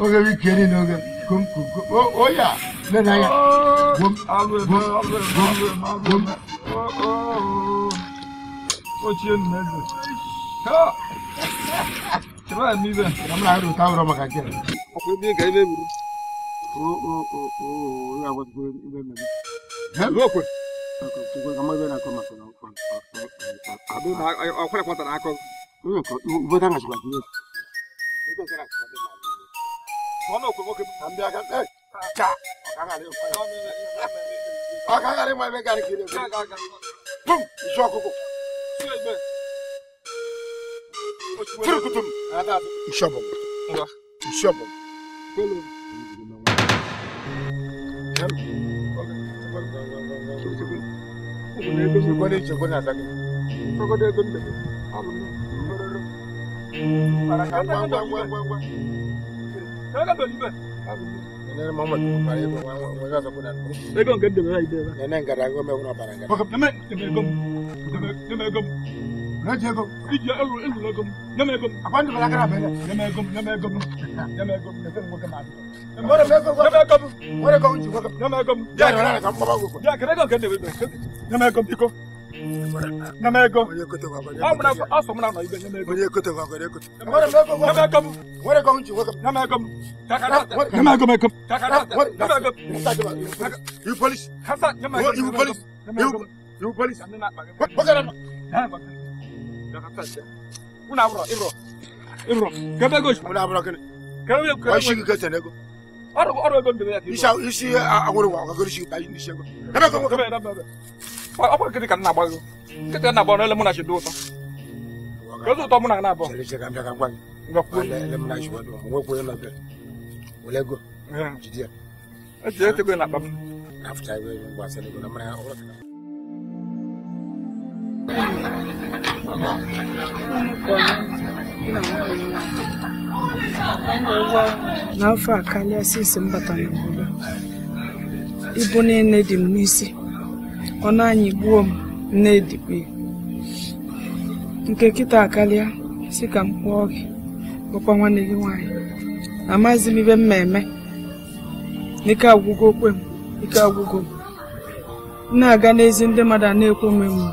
oge bi kere n'oge kom kom kom o ya ne na ya kom kom kom kom. ochie nna eze chebe ya n'ibe na m na-arụ ụta ụrọ maka gị ọkwa ebe ka ebe buru onye agwatụkwa ebe mmemme okwe ọkwa ebe na-akọ maka ọkwara kwatara akọ Ubodanga chikwadiyo. Ndikokera chikwadiyo mali. Vanokomoke mutambi akati ei cha akangarema akangarema vekarikire pum ishokoko tiri kutum ishobo ishobo Kone chekona zake. Kone chekona zake nene mama pare ko waga sa kudan be gon gadde be ide ba nene ngara go me wona baranga ko me me gom me gom na je gom ije elu elu na gom na me gom abandu bala kara be na me gom na me gom na me gom na sen go kama na me gom na me gom wore ko unji go na me gom ya na na kam baba go ya kare gon gadde be na me gom iko Namego. Amuna aso muna na ibe namego. Onye kote wa gore kote. Namego. Wore kom chi wokom. Namego. Takara. Namego meko. Takara. Namego. You police. Kasa namego. You police. You you police. Bakara. Ha bakara. Dakata. Una bro, ibro. Ibro. Kebe gosh. Una bro kene. Kebe kebe. Wa shi kete nego. Oro oro ego ndebe ya. Isha ishi agoro wa agoro shi bayi ni shego. Namego. Kebe namego. ọ kwara ka m na-agba gị nkịtị na na ụtọ kedu ụtọ mụ na na-abụ eji etego na akpa m n'afọ a karịa sisi m ibu niile dị m n'isi ọnụ anyị gbuo m nnedikwe nke kịta akalia, si ka m kpụọ gị bụkwa nwanne gị nwaanyị amaghịzi m ibe m ma eme n'ike agwụgo okwe m ike agwụgo m na-aga n'ezi ndị mmadụ a na-ekwe m emu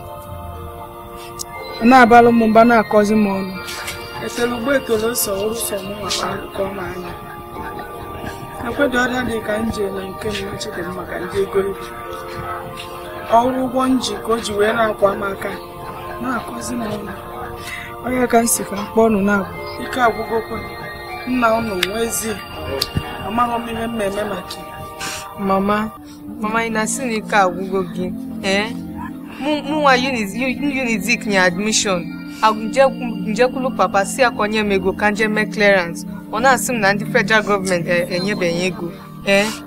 na-abalụ m mba na-akọzi m ọnụ ekele ugbo ekele nsọ ọrụsọ m maka akụkọ m anya ekwedo ọrịa dị ka m nke m machidị m maka ndị egoribu ọrụ ụgbọ ka o ji wee na-akwa m aka na-akọzi m ụlọ onye ka m ka mkpọ ọnụ na-agwụ ike agwụgo agwụgokwa nna ụnụ nwezi amaghị m ihe mmemme maka mama mama ị na-asị na ike agwụgo gị ee eh? mụnwa unizik nye admishọn njekwulu papa si akonye m ego ka nje mee clearance ọ na-asị m na ndị federal gọọmenti e, enyebeghị ego ee eh?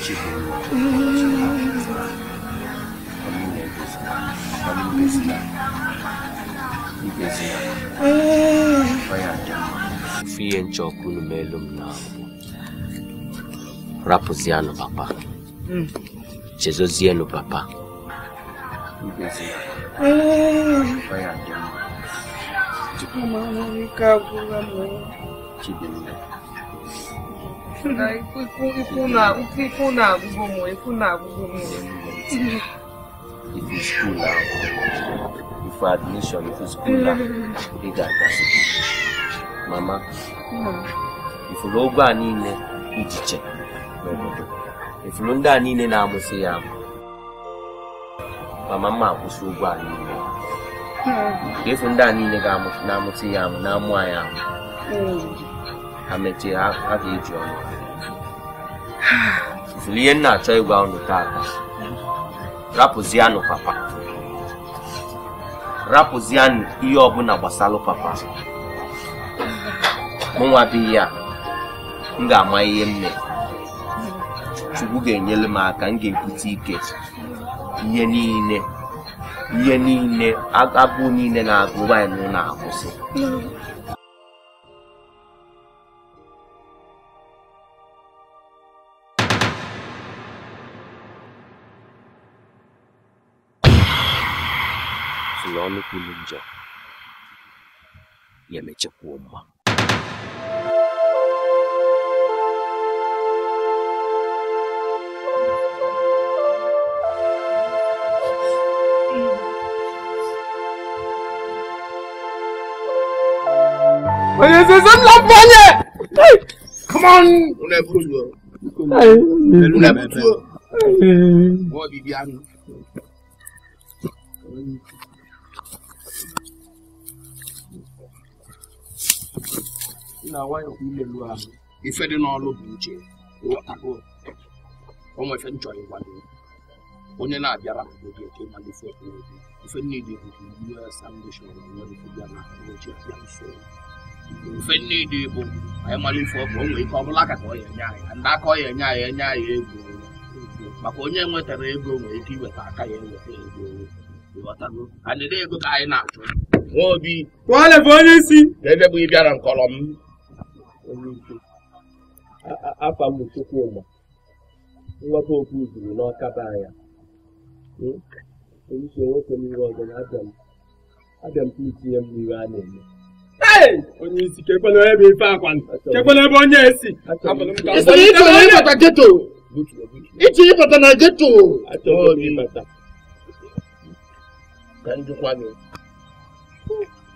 Chibolo, Mpesia, Mpesia, Bayada. Fiye nchọkụ n'elu m na rapụzianụ papa mm. chezozienụ papa ah. na ikwu na-agụgụ ụmụ ikwu na-agụgụ m ifu skuul ahụ ifu admishọn ifu skuul ahụ ị ga-agasị mama ifuru ụgbọ a niile ichiche n'obodo ifuru ndị a niile na-amụsị ya amụ mama mma akwụsị ụgwọ a niile efu ndị a niile na-amụsị ya amụ na-amụ anyị amụ ha mechie ha ga-eji ọnụ ifụrụ ihe nna achọ ịgba unu taata rapụzianụ papa rapụzianụ ihe ọbụla gbasalụ papa mụnwa bụ ya m ga-ama ihe m mere chukwu ga-enyere m aka m ga-ebute ike ihe niile ihe niile agụụ niile na-agụ anyị na akwụsị kulunja yamecha kuuma. Come on! Wọ́n Come on. na nwayọọ imelu ahụ ife dị n'ọlụ bụ uche ghọtago onwe ife nchọrọ ịgwado onye na-abịara obi eke ma dị fọt n'obi ife niile bụ US Foundation na nwere ya na ochi abịa nso ife niile bụ anyị mara ife ọbụ o nwere ike ọ bụla aka ka ọ ya enye anyị ndị aka ọ ya enye anyị enye anyị ego maka onye nwetara ego nwere ike iweta aka ya eweta ego ịghọtago anyị ego ka anyị na-achọ nwa obi bụ onye isi ebe bụ ị bịara nkọrọ onye ike afa nwata okwu zuru n'ọkaba anya hmm? eisi nwoke n'iru ọzọ na abịa m itinye m a na-eme onye isi bụ akwani ebe onye esi ịbata geto na geto achọghị ka gị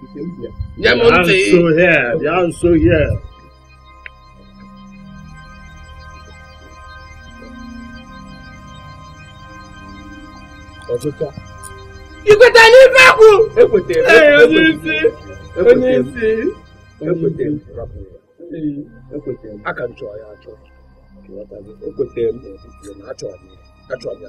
I'm so here. I'm so here. ikweta n'ife kwụ onye onye isi aka m chọọ ya achọ ekwetara m achọrọ ya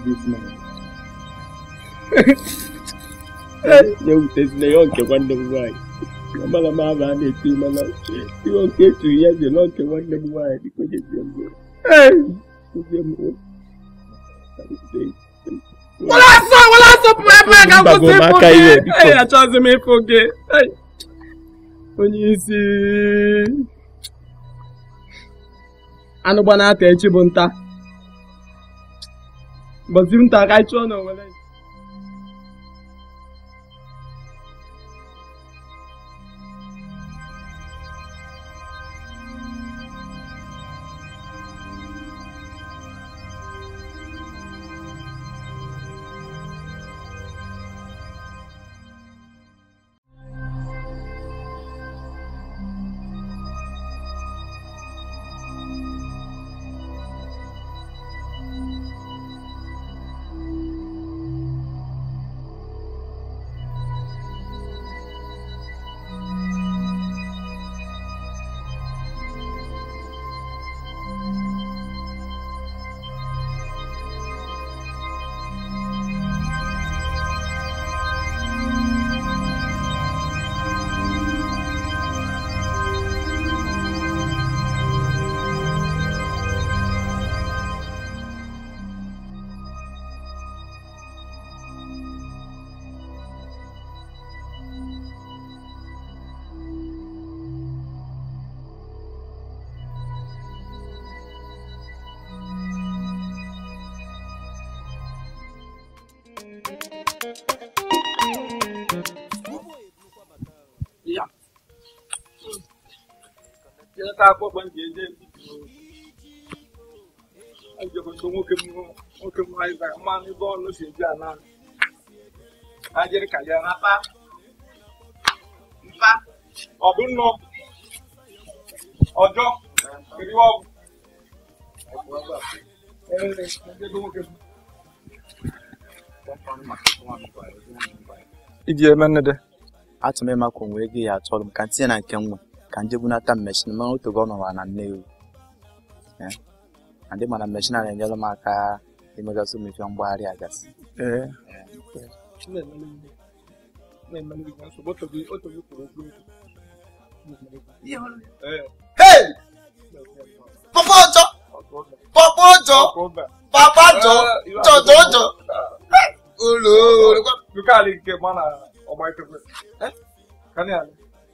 this Ya nke nwanne m nwanyị Amara m a na-eti mana ihe ya dị nke nwanne m nwanyị dịka onye dị Ee achọghịzi m ịfụ gị. Onye isi anụ echi bụ nta. बसून टाकायचो ना मला akwa ọgba ji eje njekọta nwoke nwoke mmanụ mmanụ ebe ọnụ si eji ala ajịrị ka ya rapa mpa nnọ ọjọ ọgwụ iji eme nnede onwe ya m ka ntinye na nke nwa kanje buna ta machine mangu to gono wana neu eh ande mana machine na nyalo maka imaga su mi fion bwari agas eh Eh. Hey! Papa Ojo! Papa Ojo! Papa Ojo! Jo Ojo! Ulu! Luka ali ke mana? Oh my God! Eh? Kan ali?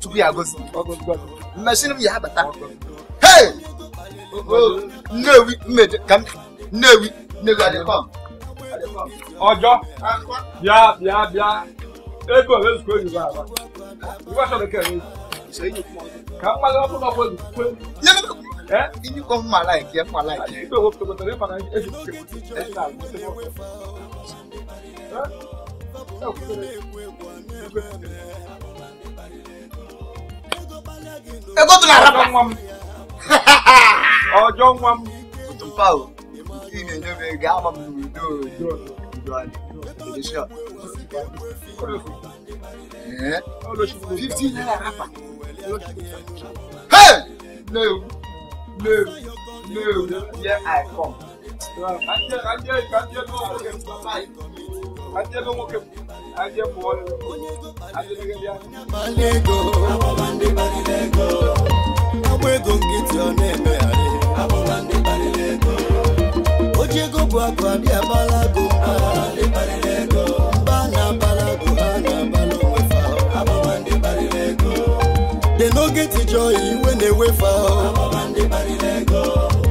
tupu ya gosi mmesịrị m ya abata hey nnewi mmede ka m nnewi nnewi adịkọm ọjọ bịa bịa bịa ego ezukọ oyibo aba iwe achọrọ ka ewe ka mmadụ ọ bụla ọbụla ezukọ Ini kok malah ya, malah ya. Itu waktu betulnya Ego tu na rapa. Ọjọ́ nwa m. Otu mpa o. Nke na-enye m ego ama m n'udo udo anyị. Edesha. Fifty naira rapa. Hey! No, no, no, here I come. Kanjẹ kanjẹ kanjẹ náà. adịebe nwoke adịe pụọ agba barilego. nkịtị ọ na-emegharị oji ego bụ akụ adịghị na-abala go ha na-abala onwefe dị n'oge tijọ iwe na-ewefe ahụ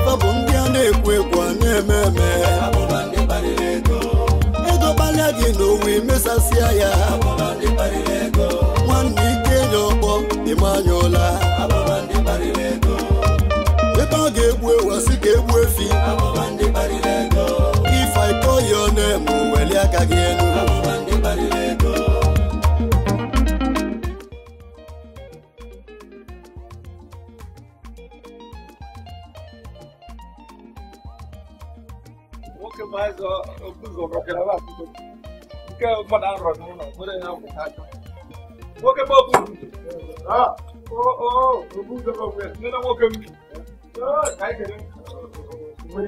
fa bụ ndị a na-ekwu anya gị n'onwe mesasịa ya nwanne ike enye ọkpọ ịmanyụọla ebe ọ ga-egbu ewasị ka egbu efi ifaiko ya ọ na-eme weli aka gị elu nwoke maazị ụzọ gbakwara nke mmadụ arọ n'ụlọ nwere ya wụta aka nwoke bụ obu obu ụzọ gbanwe nne na nwoke m ka anyị kere Ee,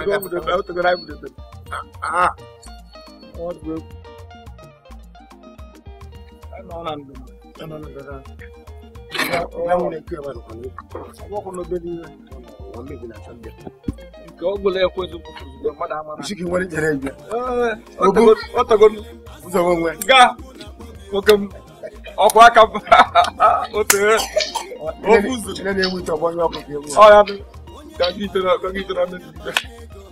o tegoro anyị bụ debe. Ah, what group? I'm on and I'm on and on. Báwo ni kí ẹ máa nìkan ní? Àwọn ọkùnrin ọgbẹ́ ní wọ́n méjì náà sọ́jà. Nke ọ gwụla ekwe ezigbo ozugbo mmadụ ama. Isi gị nwere jere ibe. Ọ tago m. Ụzọgbo nwe. Ga nwoke m ọkụ aka m otu ofu ụzọ. Nne na-ewu ite ọgbọ onye ọkụ ga-ewu. Ọ ya bụ. Gaga ite na mmiri.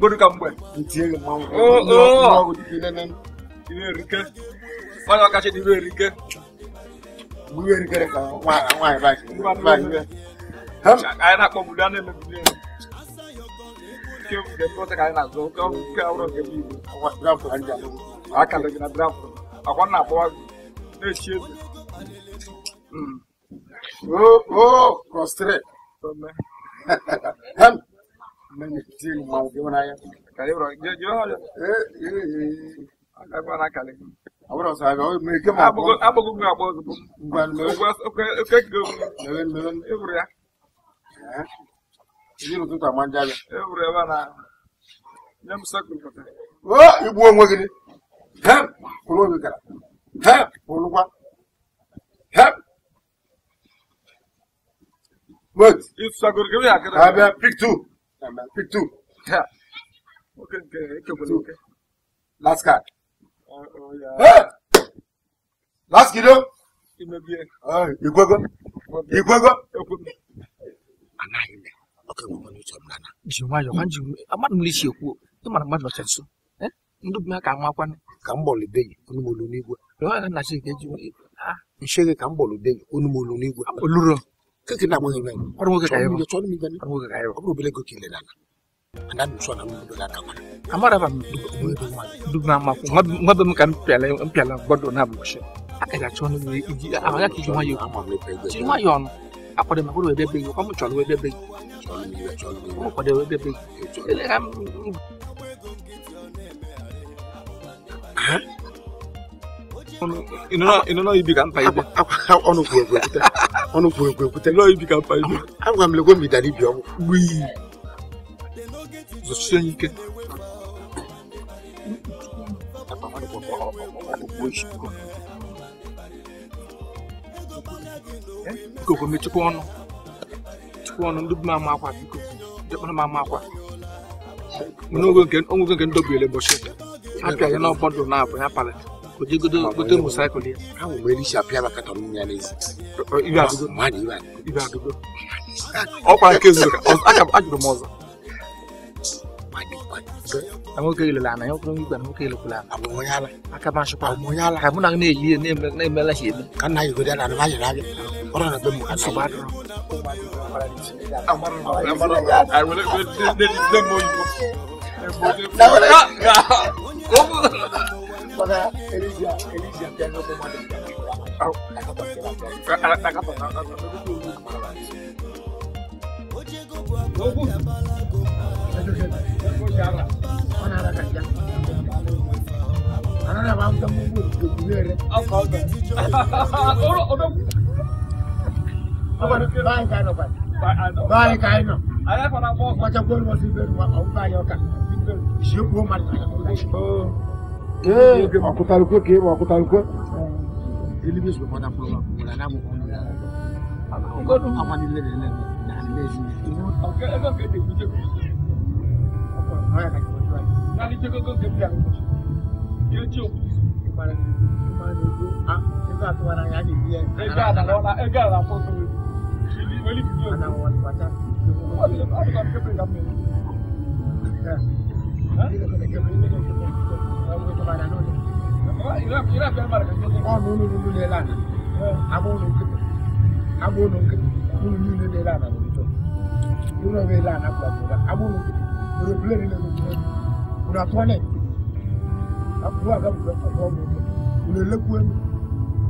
goduka mbwe ntiege oh, oh. mwangu mwangu dipilenen ibe rike wala wakache ibe rike ibe rike reka mwangu baki mwangu kaya na kwa mudane mbwe kyo mgepote kaya na zo kwa mke auro ah, ngebibu kwa draft anja akanda gina draft akwa na kwa ne chiezi hmm. oh oh prostrate hem mimi kitini mwangiona ya karibu jo jo eh agbára kalẹ. àbúrò sàbẹ ọ two. Pick two. Yeah. Okay, okay, okay, okay. okay. Last card. Uh, oh, yeah. Hey! Last kiddo. Igwego. Igwego. Anaghị m. Oke nwere onye uche m nana. Ji nwayọọ, ma ji amadụ m n'isi ekwu, ị mara mmadụ nọcha nso. Ndị bi ha ka amakwana. Ka m gbọlibeghị onye m olu n'igwe. Rịọ ya na Chike ji nshe gị ka m gbọlibeghị onye m olu n'igwe. Oluro keke na mwenye mwenye kwa mwenye kaya mwenye choni mwenye mwenye mwenye kaya kwa mwenye kwa kile lana anda mso na mwenye bila kama amara ba mwenye mwenye dugna ma ko ngabe mkan pele pele bodo na bushe akaja choni mwenye iji amara ki juma yo juma yo no akode ma ko be be yo kwa mchoni we be be choni mwenye choni mwenye akode we be be ele ram On ne ka pas ibe ọnụ kwuru On peut ọnụ kwuru ekwu On ne ibi pas mpa ibe agwa m legwe m idara ibi ọgwụ ne zosie pas bikoko mechikwa ọnụ chikwa ọnụ ndị de temps. On biko ndị kpọrọ m ama akwa onwego On na gote mosaịkụl ya ahụ mgbe elisha a maka tọrọ nwunye ya n'ezi ọkwa nke zuru aka m ajụrụ m ọzọ na nwoke ilele ana ya ọkụrụ igwe na nwoke ilekwala ana abụ onye ala aka m achụkwa abụ onye ala ka mụ na gị na-eyi ihe na-emela ya eme ka nna a gode ah, ah. na anụ anya n'abịa ọ nọ na be m Father Elijah, Elijah, they are no more than that. Báyìí ká iná. Ayé fana bọ́. Wọ́n jẹ́ gómìnà sí bẹ́ẹ̀ ni wọ́n bá yọ ká. Ìṣègùn ó máa ń tẹ̀lé. Makutaluko ke makutaluko. Elimi sọ fọdà fún wa kò lànà mọ kọ́nù yàrá. Gbọ́dọ̀ amanilẹ̀ rẹ̀ lẹ́nu lànà bẹ́ẹ̀ sí. Ọ̀gá ẹ̀fọ́ kéde kú jẹ́ kú jẹ́. Ọ̀pọ̀ ọ̀rọ̀ yàrá kìí wọ́n yàrá. Láti jẹ́ kókó kébí àwọn ọmọ ṣe. Yóò tí o kù sí ìpara ní ìpara ní ojú. A nígbà tó wà náà yá nìyí ẹ̀. Ẹgbẹ́ àdàlọ́lá Ìbàdàn lónìí. ìlà fẹ́ mara kan jẹ́ ọ̀nà olólùlù lẹ́ lánàá abóhùnù kìtì abóhùnù kìtì olólùlù lẹ́ lánàá lórí tó yóò bẹ lánàá gbàgbọ́dá abóhùnù kìtì lórí pílẹ̀rì lẹ́nu tó kùnà tọ́lẹ̀ àbúrò àgàbùgbẹ́ kọ̀ọ̀kọ́ mi kùnà lẹ́kùn ẹ̀mí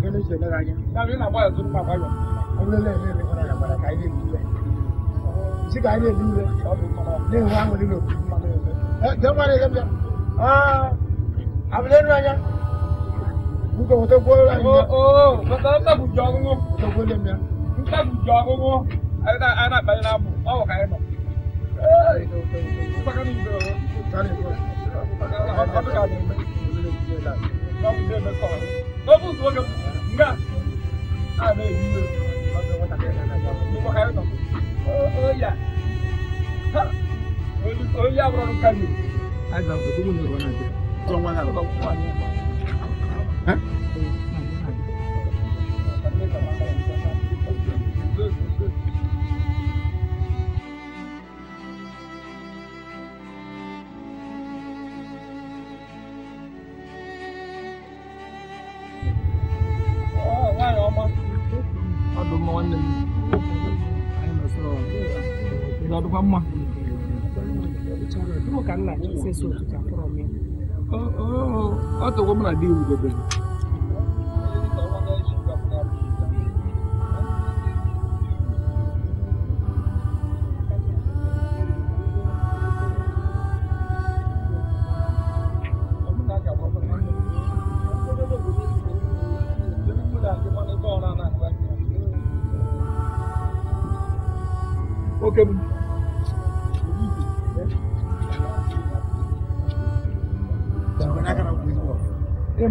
kẹ́lẹ́ ṣe lẹ́ra yẹn. sábẹ́ ní àbọ̀ ẹ̀sùn pàpà yọ ọ̀lẹ́lẹ̀ ní ẹ̀rẹ́ kọ́nà yàgbàdà káyé lè nílẹ̀ sí káyé lè nílẹ̀ ọ̀dùn kọ́nà ní ìwà àwọn onílò. ẹ jẹ́ wọ́n rẹ̀ yẹ́ bí i abilẹnu anya nke wọtọ gbọ ọrụ anyị. oo maka ntabuji ọgụgụ. ọgụgụ dị m ya. ntabuji ọgụgụ a na-akpanye n'abụ ọ bụ ka anyị nọ. mpakara ibe ọrụ. ọ dị ka adị mme. n'ofe ụzọ oge nga a na-eyi iwe ọ ka anyị nọ. oyi a oyi abụrụ karịa. trong quan hệ của tôi của anh hả Aduh, mau nih. Ayo, masuk. không ada apa-apa. Bicara, kamu kan nanya sesuatu yang promis. ọ ọ ọ tọgbọ m na di m debere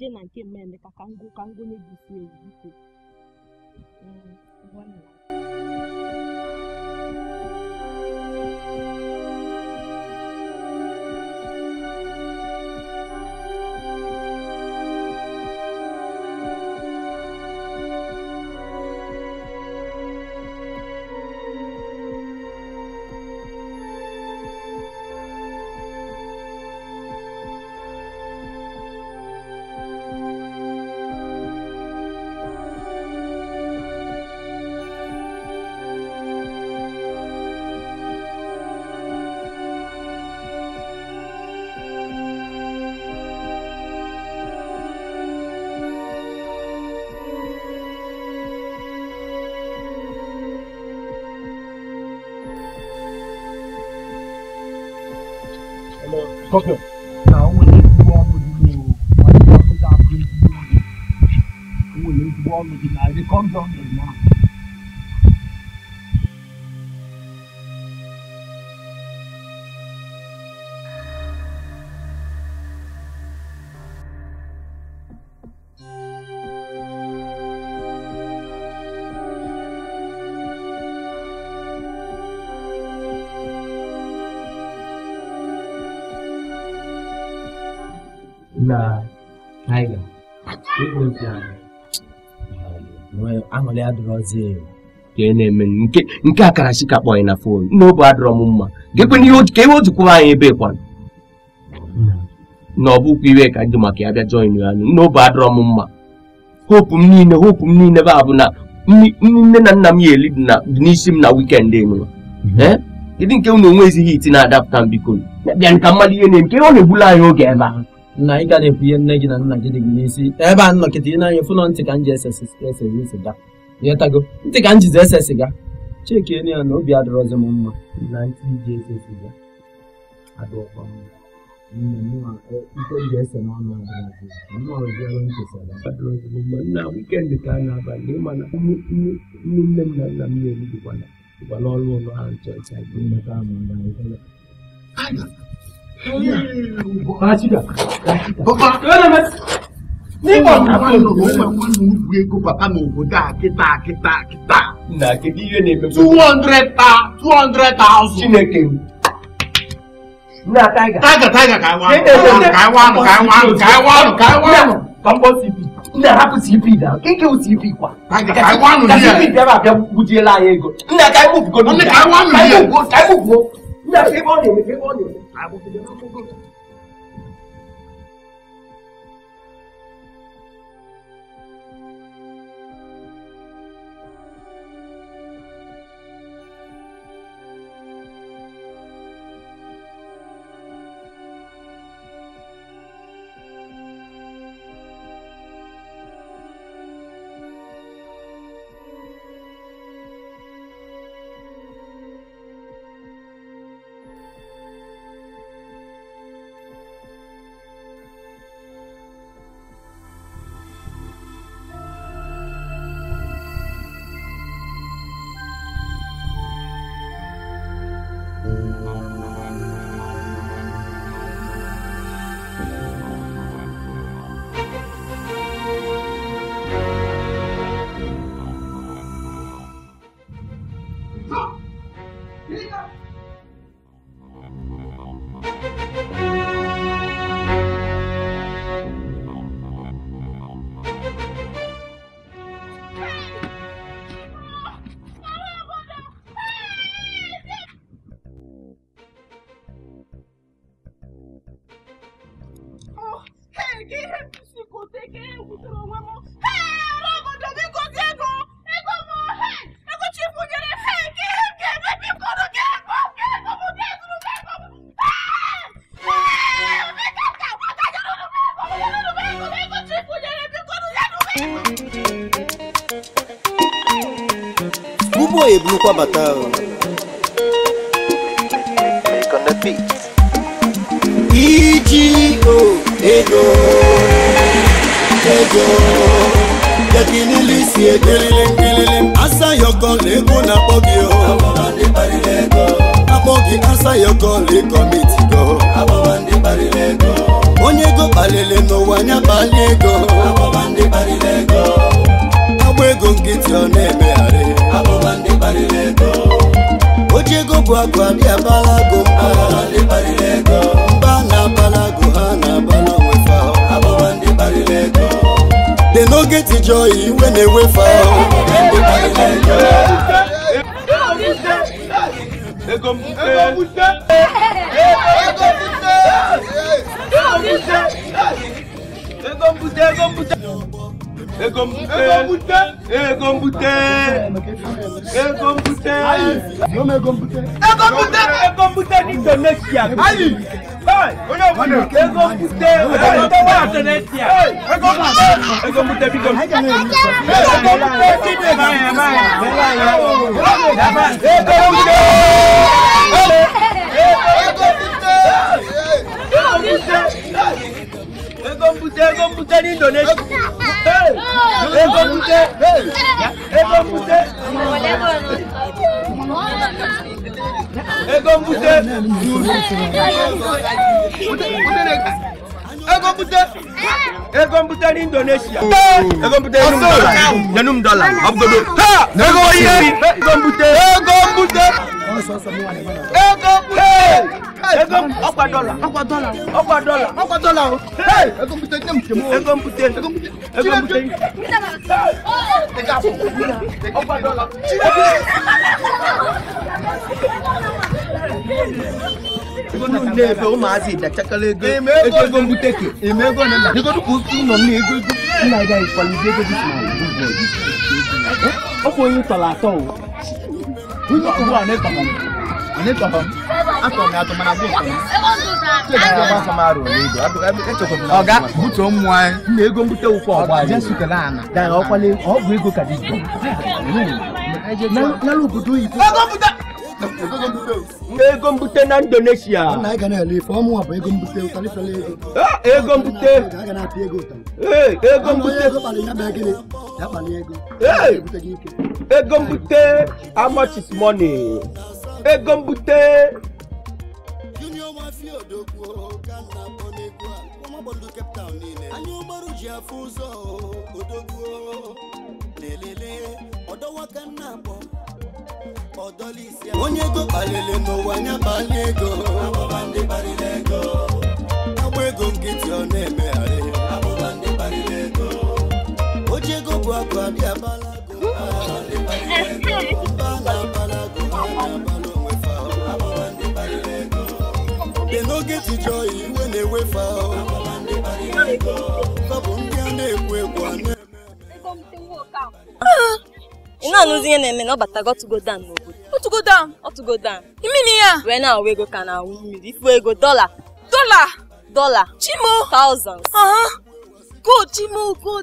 jee na nke mmemme ka m gụnye gị si ewu biko mm, Fuck ọzọ ka ị na-eme nke nke akara chika kpọ anyị na fon n'obu adịrọ m mma ka ewe otukwuwa anyị ebe kwana na ọ bụkwa iwe ka dị maka ya bịa join ya n'obu adịrọ m mma hopu m niile hopu m niile bụ na nne na nna m ya eli dị n'isi m na wikendi enyiwa mhm. eh? kedu nke unu onwe ezighi iti na-adapụta mbiko bịa nka mmadụ ihe na-eme ọ na-egbula anyị oge ebe ahụ. na ị ga na-ekwu ihe nne gị na nna gị dị gị n'isi ebe a nọkịta ị na-anya na ntị ka m ji ese ese ese ịghọtago ntị ka m ese siga chekienu ya na obi adịrọzi m mma na ntị ese siga mma na-abalị mana nne nne m na nna m na-eri dịkwa ụlọ ha ncha ncha Ana. Ana. nígbà tí wọn lò wọn máa wọn lò ego papa mi ò dá kíta kíta na kedu ihe na-eme. two hundred ta two hundred thousand. chineke na taiga. taiga taiga ka iwa anụ ka iwa anụ ka iwa anụ ka iwa anụ ka iwa anụ. pampo cp nna hapụ cp na nke o cp kwa. taiga ka iwa anụ ihe. ka cp bịara abịa gbujiela anyị ego. nna ka iwu bugo. nne ka iwa anụ ihe. ka iwu bugo ka iwu bugo. nna ka iwu ọ na-eme ka iwu ọ na-eme. Lukwa Batao. Make on the beat. EGO, ego, ego. Yakini lisi egelele ngelele. Asa yoko lego na pogi o. Oh. Abo andi pari lego. Abogi asa yoko le mitigo. go. Abo pari lego. Onye go balele no wanya balego. Abo andi pari lego ego ego nkịtị ọ na-emegharị oji ego bụ agụ adị abalago mba na-abalago ha na-abala onwe dị n'oge tijọ iwe na-ewefe ahụ Ego mbute, ego mbute. Ego mbute. Ego mbute. Ego mbute. Ego mbute. Ego mbute. Ego mbute ní Indonesia. Ayi. Ego mbute. Ego mbute wà Indonesia. Ego mbute. Ego mbute bí gom. Ego mbute bí gom. Ego mbute. Ego mbute. Ego mbute ní Indonesia. Ego mute. Ego mute. Ego mute. Ego mute. Ego mute ni Indonesia. Ego mute ni dollar. Janum dollar. Abgodo. Ha! Ego mute. Ego mute. Ego mute. Ego mute ọkwa dọla ọkwa dọla ọkwa dọla ọkwa dọla o. ego mpute ego mpute ego mpute ne fɛ o maa si da cakale ego ego ego mu teke eme ego ne na ego duku tu nɔ ne ego ego nna da ikɔli de ego duku ma o bɔ o ko yin tɔla tɔ o o yi wa ne tɔ ne tɔ a tɔ mɛ a tɔ ma bo tɔ ọga butuo mmụọ anyị na ego mbute ụkwa ọgba ọgwụ ego ka dị obodo oyibo ego mbute na indonesia ego mbute ego mbute ego mbute how much is money ego mbute odogwu gana bonegwu ụmụgbọndụ Cape Town niile anya ụgbarụ ji afụ ụzọ odogwu na-elele ọdọwaka nna akpọ ọdọlisi onye ego kpalele n'ụwa anya kpalie ego abụba ndị kparịrị ego agba ego nkịtị ọ na-emegharị abụba ndị kparịrị ego oji ego bụ akụ abịa get joy when they wave out. na anụzi ihe na-eme na ọ batago ọtụgo dan n'obodo ọtụgo dan ọtụgo dan imini ya wee na-awụ ego ka na-awụ mmiri ifu ego dọla dọla dọla chimo thousands ah, go chimo go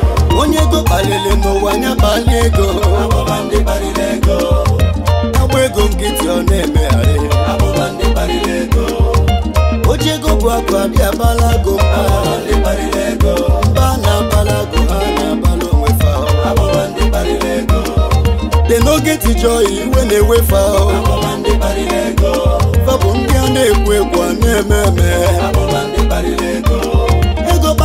onye ego kpaliri n'ụwa nya kpali ego agba ego nkịtị ọ na-emegharị oche ego bụ akụ abịa abala go mba na abala go ha na-abala onwe dị n'oge tijọ iwe na-ewefe ahụ fa bụ ndị a na-ekwu ekwu a na-eme eme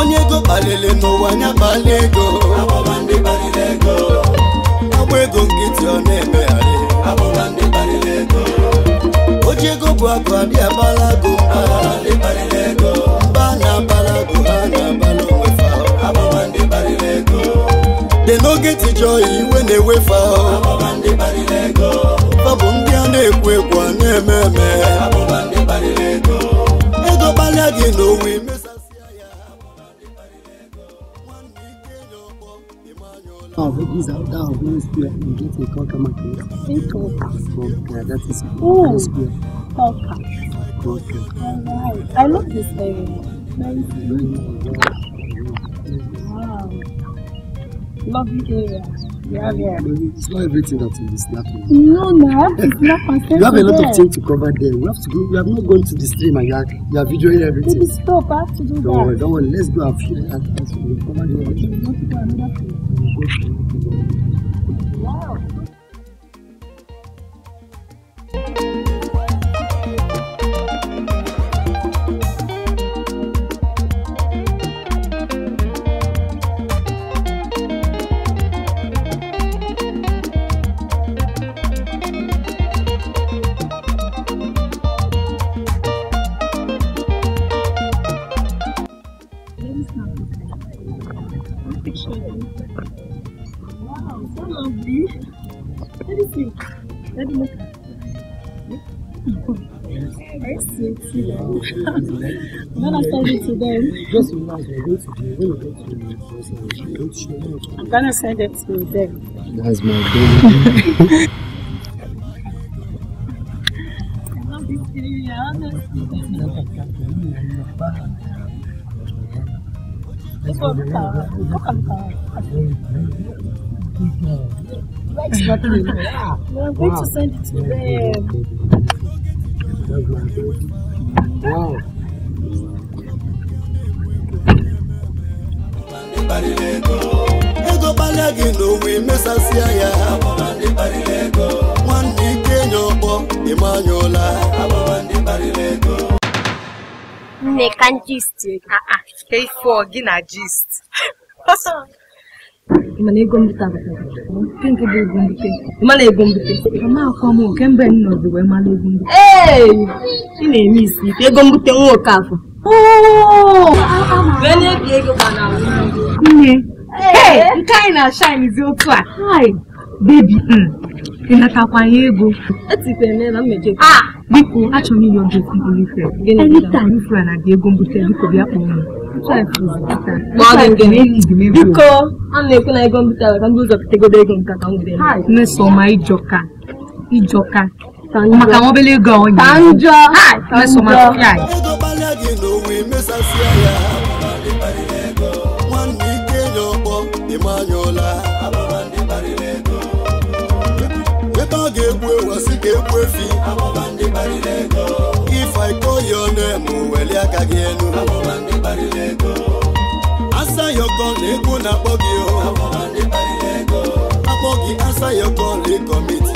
onye ego kpalili n'ụwa anya kpali ego agba ego nkịtị ọ na-emegharị oji ego bụ akụ adị abala go mba na abala go ha na abala onwefa dị n'oge tijọ iwe na-ewefa fa bụ ndị a na-ekwu ekwu abo na-eme eme ego kpalịa gị n'owe imesi Talvez alguns oh, que dizem qualquer uma coisa. Sem tocar. Oh, tocar. Tocar. I love this baby. Nice. Wow. Lovely area. It's not everything that is snapping. No, no, it's not You have a lot there. of things to cover there. We have to go. We have not gone to the stream and you are, you are videoing everything. Baby, stop. I have to do don't that. Don't worry, don't worry. Let's go and feel and, and so we'll cover the everything. Wow. I to them. when to them. I'm gonna send it to them. That's my baby. I honestly. Uh, look at Yeah. Well, I'm going wow. to send it to them. Wow. ego gbalịa n'owe mesasịa ya nwanne ike nye ọkpọ ịmanyụla nne ka gist gị na gist mana ego mbute nke nke bụ ego mbute mana ego mbute mama akwa m oke mgbe m nọzi wee mara ego mbute ee ị na-eme isi ike ego mbute nwa okafọ nne nke anyị na-acha anyịzi otu a bebi hmm. ịnatakwaye ego biko achọrọ m inye oge okwu ife Anyị ifura na dị ego mbute biko bịa kpọọ m ma biko a na-ekwu na ego mbite ka ndị ụzọ pụtagodo ego nka ka m were Nneoma ịjọka ịjọka maka obele ego onye ka ga-egbu efi if I call your name aka gị elu asayọkọ na-ekwu na-akpọ gị akpọ gị asayọkọ na-ekọmiti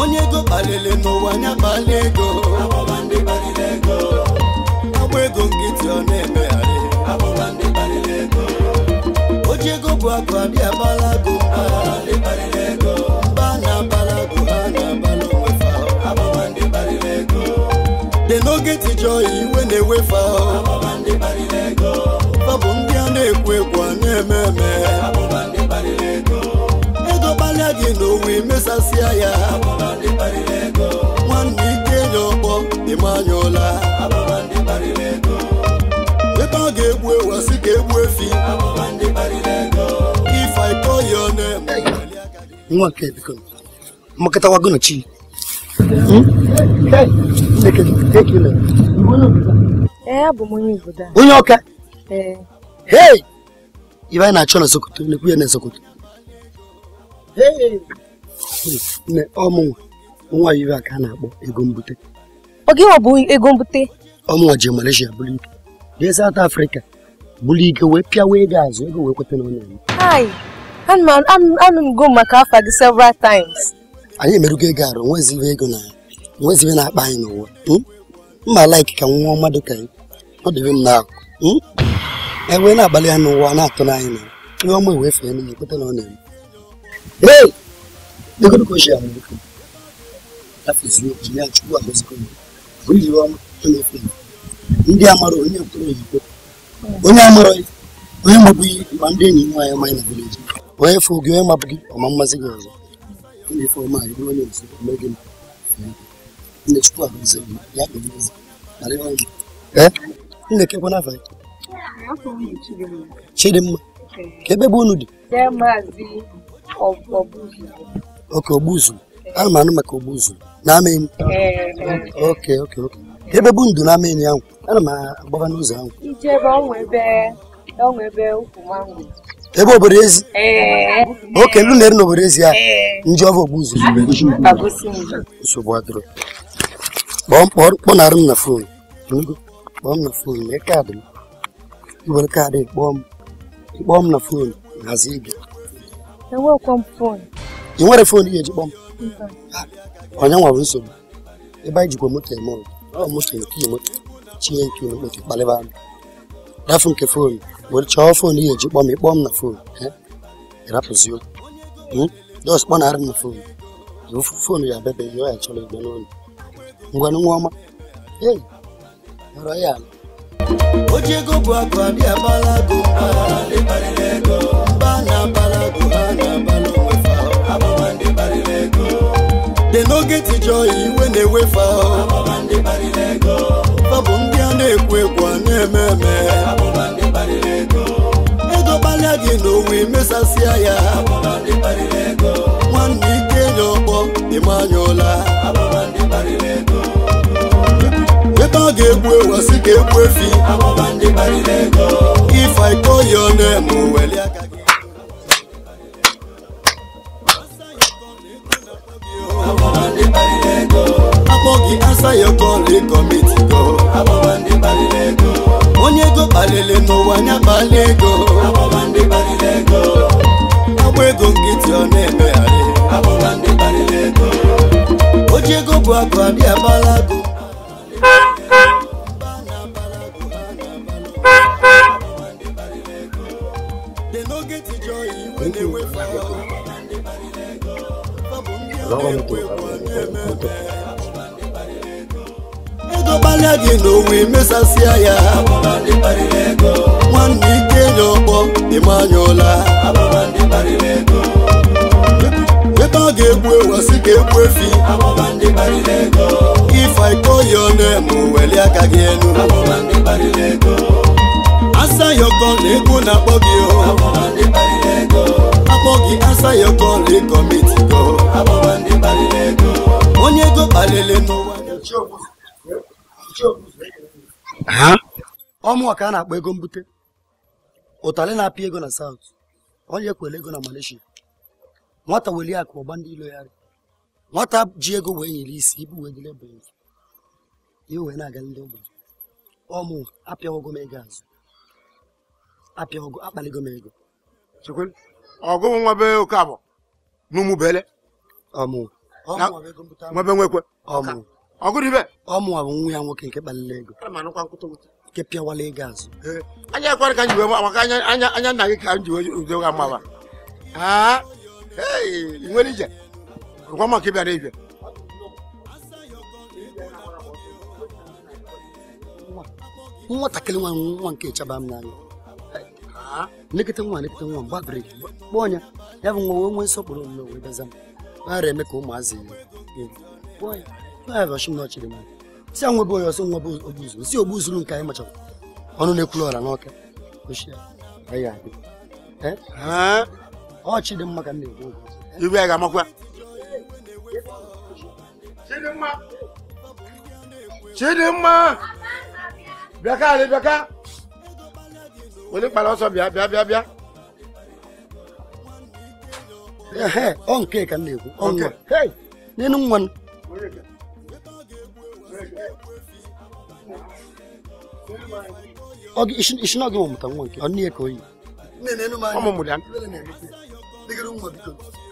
onye ego kpalili n'ụwa nya kpali ego agba ego nkịtị ọ na-emegharị oji ego bụ akụ abịa akpala go na-ewefa fa bụ ndị a na-ekwu ekwu a na-eme eme ego gbalịa gị na owe mesasịa ya nwanne ike nye ọkpọ ịma ụla ebe ọ ga-egbu ewu ka egbu efi nwa nke biko mmakọtawago Eh, onye ọka hei ibe anyị na-achọ na sokoto na-ekwu ya na sokoto nne ọmụnwa nwa ibe a ka a na-akpọ ego mbute oge ọ bụ ego mbute ọmụnwa ji Malaysia bụrụ ike jee South Africa bụrụ ike wee pịawa ego azụ ego wee kweta na ọ na-eme anụ m go maka afa gị several times anyị emerugo ego arụ nwezibe ego na nwezibe na-akpa anyị n'ụwa hmm? mma like ka nwa ọma ka ya ọ dịrị m hmm? e wee na-agbalị ya n'ụwa na-atụ n'anya na ihe ọma ewee fee n'ihi kweta na ọ na-eme ka ya ihe na-efe ndị amara onye oyibo onye amara onye ma ndị enyi amaghị na vileji onye fụ gị onye mabụghị ọma mmasị gị ọzọ na inda ke kuna fahimta. Chidimma. Kebe bụ unu dị? Maazị Ok, Ogbuzu. Ana maka Ogbuzu. N'amịn? Eh, ok, ok, ok. Ebe bụ ndụ n'amịn ana m agbaba n'ụzọ ahụ. Ije ebe ọnwa ebe ọnwa ebe obodo ezi? Eh. Ok, não na-eri n'obodo ezi a, eh. ndị ọbụ Ogbuzu. Nsogbu adịrọ. Ah, Kpọọ mkpọnarụ m na fon bom na phường né ca é bom é bom na phường na zíbia, então, eu vou com fone, eu vou phone fone de bom então. ah, olha um avanço e vai de como tem mão ó mostra aqui mano tinha que não botar baleva da phone que fone, vou cho é fone ia de bom bom na phone né era possível hum dos bom na na phone eu phone ia bebe eu ia chorar de novo ngwana ngoma ei royal oji ego bụ akụ adị abalago mba na abalago ha na abala dị n'oge tijọ iwe na-ewefe ahụ bụ ndị a na-ekwu ekwu a na-eme eme ego gbalịa gị na owe mesasịa ya nwanne ike nye ọkpọ ịmanyụọla ọ ga-egbu ewu si ka egbu efi if I call your name weli aka ya onye ego kpalili n'ụwa anya kpali ego agba ego nkịtị ọ na-emegharị oji ego bụ akụ abịa abala ego gbalịa gị na owe mesasịa ya nwanne ike nye ọkpọ ịmanyụla ebe ọ ga-egbu ewasị ka egbu efi ife iko ya na-eme welie aka gị elu asa ya ọkọ na egwu na-akpọ gị o Ọ gị asa ya onye ego n'ụwa ọmụọ ka a na-akpọ ego mbute ụtalị na apị ego na South, onye kwere ego na Malaysia nwata weli akụ ọgba ndị ilo ya nwata ji ego wee nyere isi ibu wee bụ ihe wee na-aga ndị ogbenye ọmụ apịawogo m ego azụ m ego sokol ogo nwabe oke abọ n'umu bele ọmụ nwabe nwekwe ọmụ ọgụdibe ọmụ abụ nwa ya nwoke nke kpalila ego nke pịawala ego azụ anya ekwere ka nji wee maka anya anya nna gị ka nji wee udo ga mma ị nwere ije ngwa maka ịbịara ibia nwatakịrị nwa nwa nke chaba m n'anya nlekọta nwa nlekọta nwa mgbabiri kpọọ ọnya ya bụ nwa nwee nsọpụrụ n'onwe bịaza m nara eme ka ụmụazị ọchịrị m si a nwebe onye ọsọ nwa bụ ogbuzuru si ogbuzuru nke anyị machara ọnụ na-ekwulu ọra n'ọka ọchị dị mma ka m na-ekwu iwe ya ga-amakwa Chidimma bịaka alị bịaka onípàlọ́ sọ bíá bíá bíá bíá. ọ̀nkẹ́ kan lè kú ọ̀nkẹ́ nínú wọn. ogi ishin ishin ogi mo mutan wonke onni e koyi ne ne no ma mo mudan ne ne diga dum mo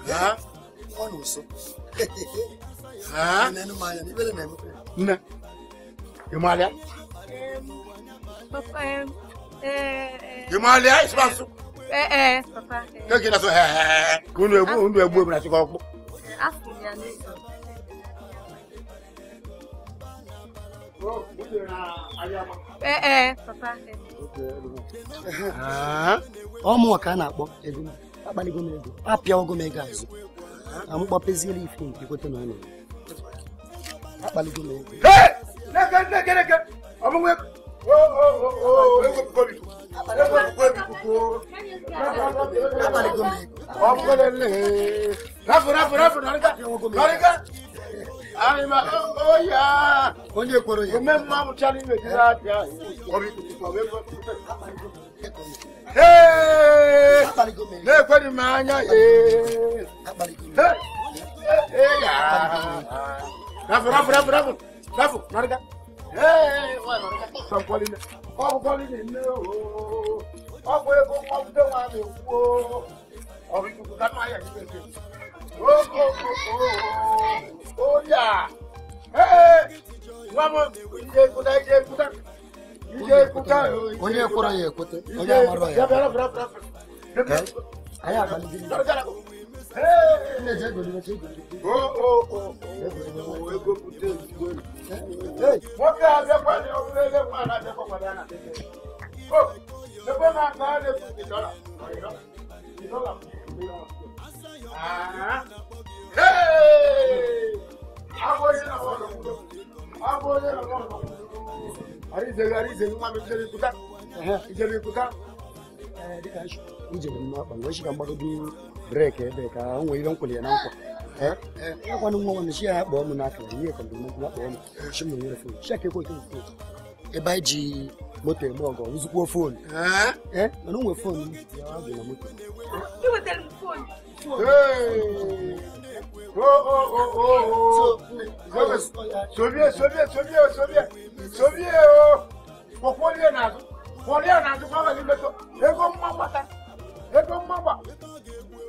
ya ni bele ne mo ìmọ̀lẹ́ àìsàn máa sùn. ẹ ẹ papa. kéèké náà sọ ẹ ẹ kó nu egbò nu egbò èmi àti kọ́kọ́. ẹ ẹ papa. ọmụ ọka a na-akpọ ego akpaligo m ego apịago m ego azụ amụkpapeziela ife nke kweta na ọ nọ akpaligo m ego. ọ bụghị rafu rafu rafu nalika nalika alima oya konje koro ye mem ma mutani me jira ja kobi kwa we hey ne kweli manya ye hey ya rafu rafu rafu rafu rafu nalika ọ̀pọ̀lọpọ̀ nílé o ọ̀pọ̀ epo kọ́mpútà wà mí wò ó ọ̀rọ̀ ìdùkú ká máa yẹ kí pèsè ó kó kó ó yà wọ́n mọ̀ ìdíje kúta ìdíje kúta ìdíje kúta. onye ekura ya ekwute onye amara ya. Ayé àgbàlejò. Nwoke a bịakwa na obere ele nwa a na-abịakwa kwado ya na ebe na nke a na-efu dọla dọla abụghị na abụghị na arizeghi arizeghi nwa m ijere ikuta ijere ikuta dịka ijere m akpa na ọ shiga mgbado n'ihu break ebe ka ha nwere ire nkwere ya na nkwa ịkwana nwa nwanne chi ya ya kpọọ m n'aka ihe ka mgbe nkwụ kpọọ m chi m nwere fon chi aka ekwe ekwe ebe anyị ji moto eme ọgọ nzukwuo fon mana onwe fon dị na moto Sobie, sobie, sobie, sobie, sobie o. Kwọkwọlie n'azụ, kwọlie n'azụ, kwa ọ Ego mma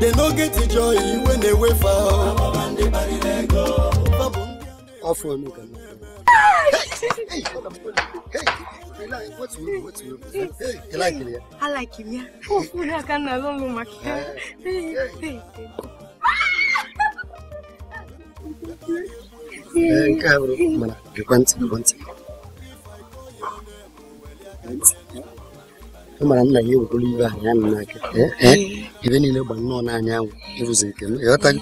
They no get the joy when they wait for Off one again. Hey, hey, hey, like, what's wrong? What's wrong? Hey, you like him, yeah? I like him, yeah. Oh, I can't alone, my Hey, hey, hey. Hey, cabrón. Mana, que cuente, que cuente. mara nna ya ewegoro ibe anyị amị n'aka ebe niile gba nnọọ n'anya anwụ ịrụzi nke m ịghọtago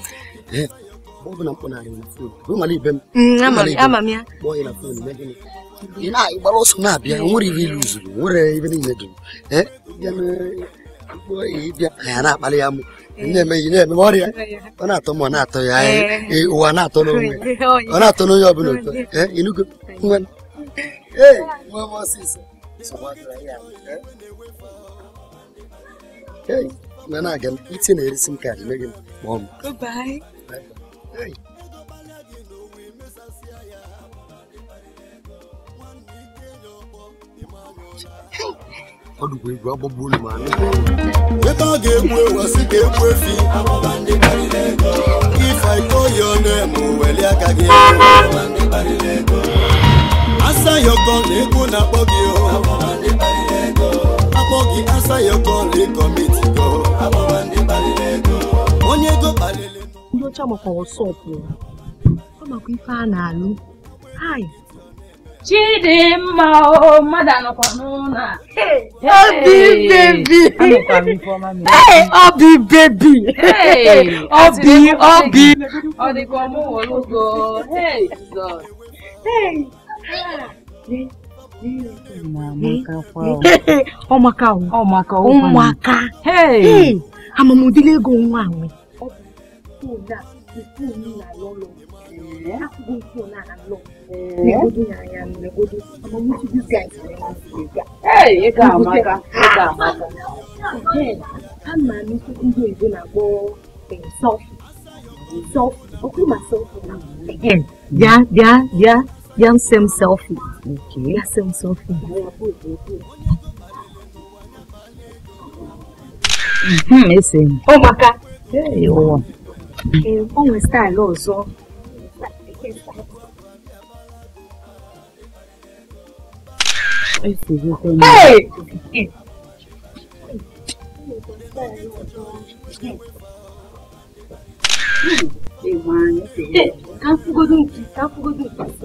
ọ bụ na mkpụnarị na fon ịmara ibe m kpọọ ya na fon megịnị ị na-agbara ọsọ na-abịa nwere ihe ilu zuru nwere ibe niile dum ịbịa ya na ya mụ na-eme ihe na-eme ọrịa ọ na-atọ m ọ na-atọ ya ụwa na-atọ n'onwe ọ na-atọ n'onye ọ bụla ụtọ ịnụgo ee na na-aga na-eresi m a meghị m kpọọ ọdụkwa ma ebe a ga-egbu ewasị ga egbu efi if i call your weli aka gị asa yọkọ na na-akpọ gị oh. oge answer your call e commit go abụba ndị kpaliri ego onye ego kpaliri ndị ọcha makwa wọsọp ọ makwa ife a na-alụ hai Chidimma o mmadụ anọkwa n'ụlọ a obi bebi obi bebi obi obi ọ dịka ọmụwọlugo ọmaka ọmaka ụmụaka amamudile ego nwa anwe ama m ndị oyibo na-akpọ self self okwu ma self again bịa bịa bịa yan same selfie. Okay. Yan same selfie. Mm-hmm, ese. Oh, maka. Hey, oh. Eh, como está el oso? Hey! hey. Hey, man. Hey, can't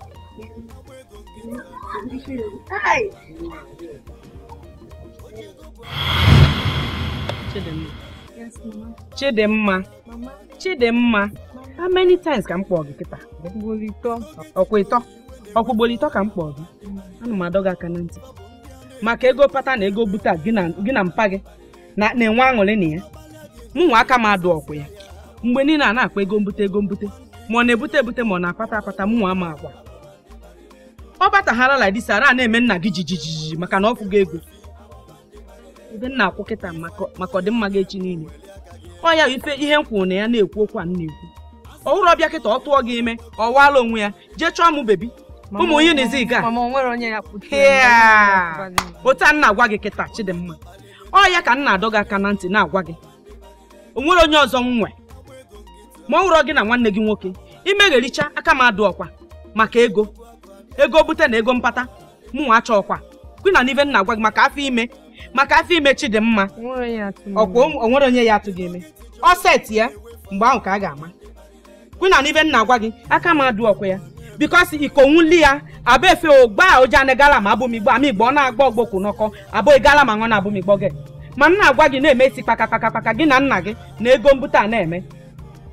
Chidimma Chidimma how many times ka m kpọọ gị kịta ọkwa ịtọ ka m kpọọ gị ana m adọ gị aka na ntị maka ego pata na ego buta gị na mpa gị na-enwe aṅụrị na ya mụnwa aka m adụ ọkwa ya mgbe niile a na akpọ ego mbute ego mbute ma ọ na-ebute ebute ma ọ na-apata apata mụnwa ama akwa ọ bataghara la this ara na-eme nna gị jijijiji maka na ọ fụgo ego ebe nna akwụ kịta maka ọdịmma gị echi niile ọ ya ife ihe m kwuru na ya na-ekwu okwu a m na-ekwu ọhụrụ ọbịa kịta ọ tụọ gị ime ọ waala onwe ya jee chọọ mụ bebi ụmụ onye na-ezi ga otu nna agwa gị kịta chidimma ọ ya ka nna adọ gị aka na ntị na-agwa gị o nwere onye ọzọ m nwe ma ọ hụrụ gị na nwanne gị nwoke imegharịcha aka m adụ ọkwa maka ego ego bute na ego mpata mụnwa achọkwa kwina na ibe nna gwa gị maka afọ ime maka afọ ime Chidimma ọkwa onwere onye ya atụghị eme ọ seti ya mgbe ahụ ka a ga-ama kwina na nna gwa gị aka m adụ ọkwa ya bikọsi ikonwuli ya abụ efe ogba oje na gala ma abụmigbo ama igbo ọ na-agba ọgbokwu n'ọkọ abụghị e gala ma nọ na abụmigbo gị ma nna agwa gị na-eme isi kpakakpakakpaka gị na nna gị na ego mbute a na-eme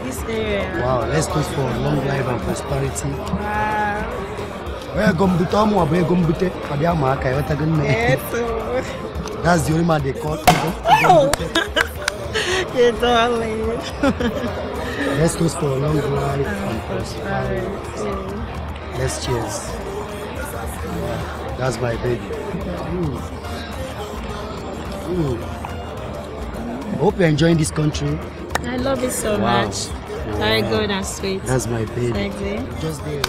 this area. Wow, let's go for long life and prosperity. Wow. Where abe eh, That's the only man they call. Oh. You're let's go for long life and uh, prosperity. Let's cheers. that's my baby. Mm. Mm. hope you're enjoying this country. I love it so wow. much. Wow. Very good and sweet. That's my baby. Sexy. Just there.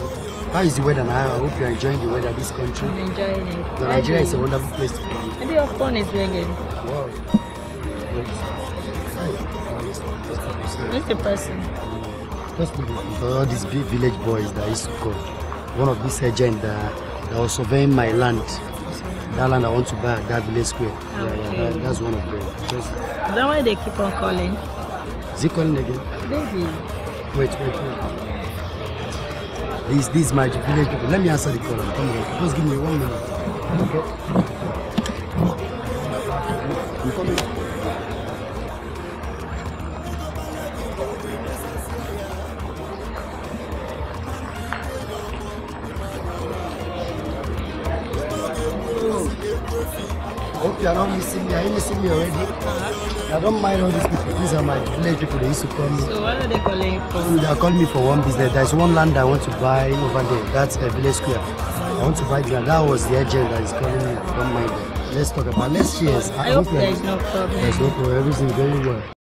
How is the weather now? I hope you're enjoying the weather this country. I'm enjoying it. Nigeria is a wonderful place to be. Maybe your phone is ringing. Wow. Who's the person? Just for all these big village boys that used to come. One of these agents that, that was surveying my land. That land I want to buy that village square. Okay. Yeah, yeah, that, that's one of them. Just, is that why they keep on calling? Zikon again. Baby. Wait, wait, wait. These, this my village Let me answer the call. Come on. Just give me one minute. Okay. You coming? Hope you're not missing me. Are you missing me already? I don't mind all these people. These are my village people. They used to call me. So what are they calling for? They are calling me for one business. There's one land I want to buy over there. That's a uh, village square. I want to buy that. That was the agent that is calling me. I don't mind Let's talk about. next year. I, I hope, hope there's no problem. There's no problem. everything very well.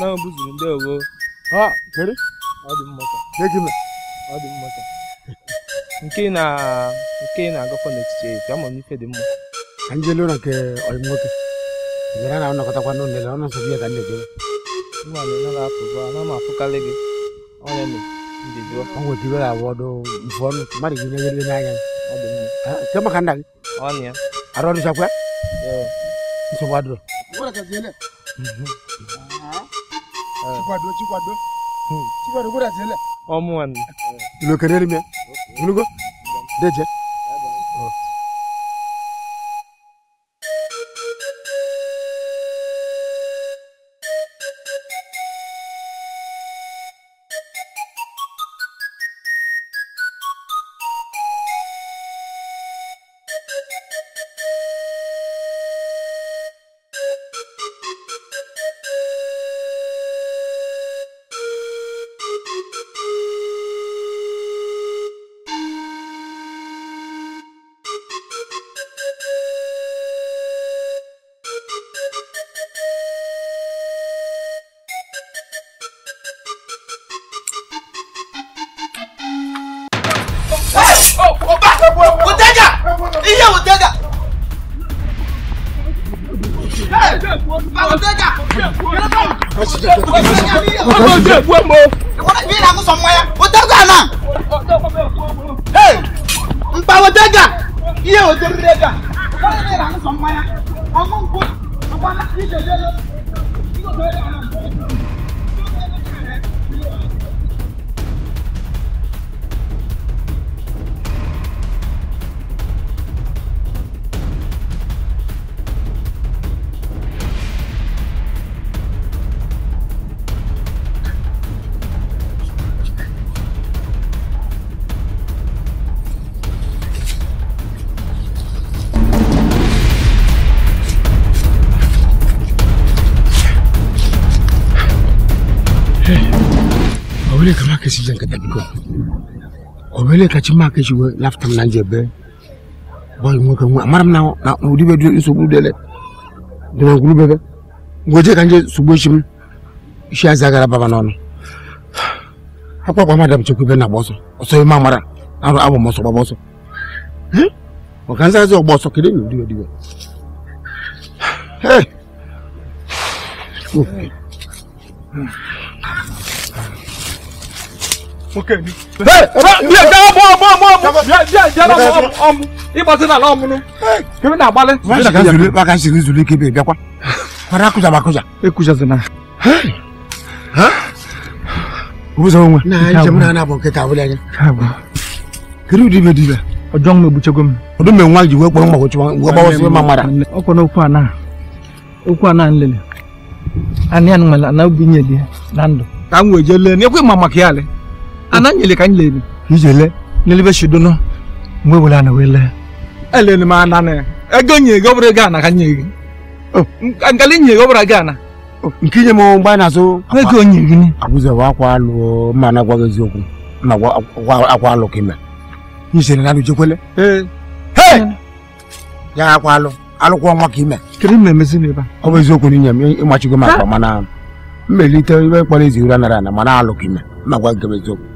na mbuzi ndị wo, ha kere ọ dị mmata gịnị ọ dị nke na nke na-agakọ n'etiti ezi ama m ife dị mma ka m jelu na nke ọyị nwoke bịara na ọnọkọtakwa n'ụlọ ọnụ nsọ biya ka ndị jụrụ nwa m na na-apụ bụ ana m afụkarị gị ọnya m ndị jụọ ọ nwere ike iwere awọ ọdụ mfu ọnụ mmadụ gị na-enyere n'anya ọ dị mma nke maka nna gị ọnụ ya arụ ọdụ chakwa nsogbu adụrụ Eh. chikwado chikwado chikwado kuda jele omuwan lo kaderi me mulugo deje ọmọ ojú ẹ̀kú ẹ̀ mọ́. ìwọ́n mi ìlànà sọ̀mọ́ ya o tẹ́gà náà. n pa o tẹ́gà iye o tẹ́gà. ìwọ́n mi ìlànà sọ̀mọ́ ya ọmọ nkú ọmọ náà kí ìjọba sɛ nkata bi kɔ ɔbɛlɛ kakyi maa kakyi wɔ laftam na nkyɛ bɛ bɔyi mu kan mu amaram na o odi bɛ du nso bulu dɛlɛ dɛmɛ nkulu bɛ bɛ ngɔjɛ kan jɛ subu ehyim ehyia zagara baba n'ɔno akɔ akɔ ama dam kyekwu bɛ na bɔ o ɔsɔ ema amara aro abɔ mɔ so bɔ so ɔkan sɛ ɔbɔ so kede na odi bɛ di bɛ hɛ. oke ni. bịa ka ọmụ ọmụ ọmụ ọmụ bịa bịa bịa na ọmụ ọmụ ịgbasi n'ala ọmụnụ kebe na-agbalị. maka siri zuru ike ebe bịakwa kwara akụja ma akụja. ekụjazina. obuzo onwe. na njem na anabụ nkịta abụla anya. kedu ụdị ibe dị ibe. ọjọọ m egbuchego m. ọdụ m nwa ji wee kpọrọ mma gbochi wee gbawasị ma mara. ọkwa n'okwu a na okwu a na nlele. anị anụ nwere na obinye dị na ndụ. ka m wee jee lee n'ekwe ma maka ya lee. ana nyele ka anyị lere ijele n'elebe shidono mgbe were ana wee lee elere m'a ana na ego nye ego bụrụ gaa na ka nye gị nkali nye ego bụrụ ego ana oh, nke inye na-azụ ego nye gị ni abụzọ ma na agwaghị eziokwu na akwa ime na nujekwele ya akwa mana mmelite ibe ezi ụra nara mana alụ ime eziokwu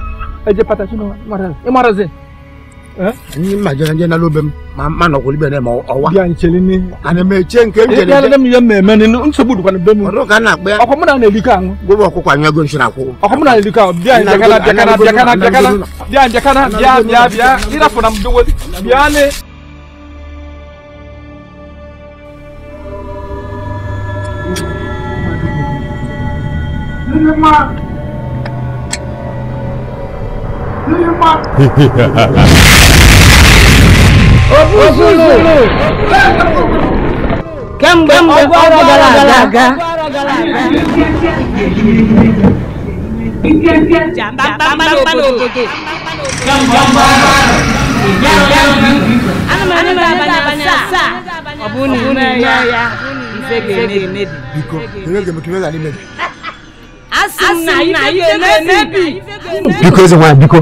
ẹjẹ pàtàkì nù ẹ má ra zẹ. ni majanajɛ nalo bɛ ma ma nɔkoli bɛ ne ma o wa. yan cɛli ni. ani mɛ cɛ nke jɛli tɛ. yalɛ mi ye mɛmɛ ni n sɛ b'olu kɔni bɛɛ mu. o ka na gbɛ. ɔ ko mun na ne lika n. gbɔdɔ ko k'a ɲɛ gbɛ nsira ko. ɔ ko mun na ne lika biya jakana jakana jakana jakana biya jakana biya biya biya yira fana dogo biya ne. Thank you bímọ. òfúrufú kẹ́mbẹ́ ọgbà gàràgà. jàmbá bàbá lòkòkò. jàmbá anụmanụ na-abanye abanye asaa ọ bụ na ime ya ya ife ga-emebi emebi. biko ere ga-emebi ime ga-emebi. asị m na ife ga-emebi biko eze nwanyị biko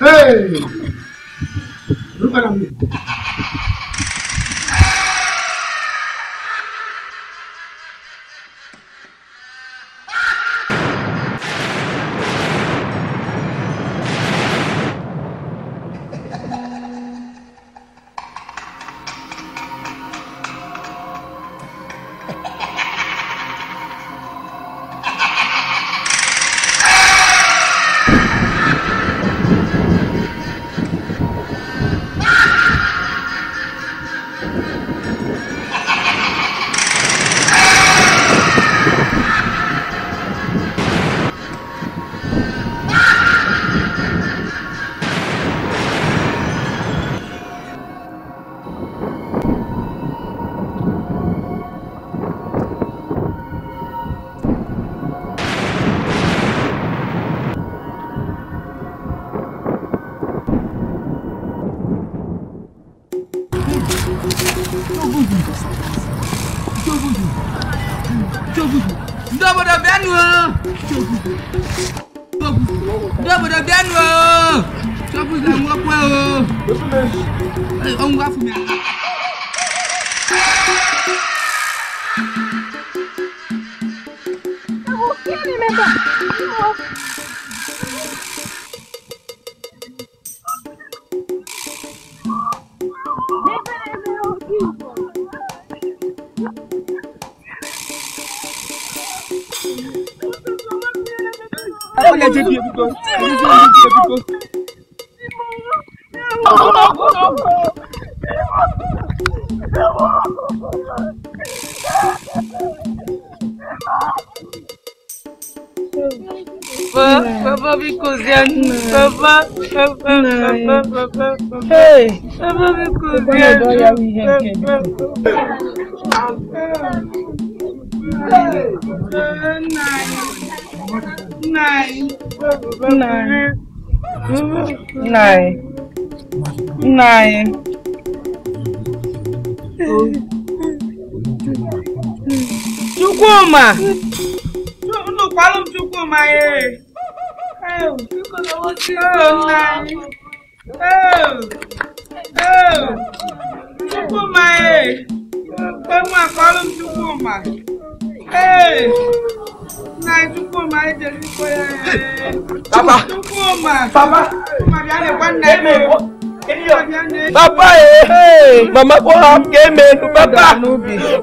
Hey! Look at him. Lu kwalum chukwu ma e. Oh, nna anyị. Oh, oh, chukwu ma e. Onwa kwalum chukwu ma. Ee, nna anyị chukwu ma e jere ikpe ya. Papa. Chukwu ma. Papa. Papa bịa na-ekwe nna ya. Papa Mama go have game menu, Papa.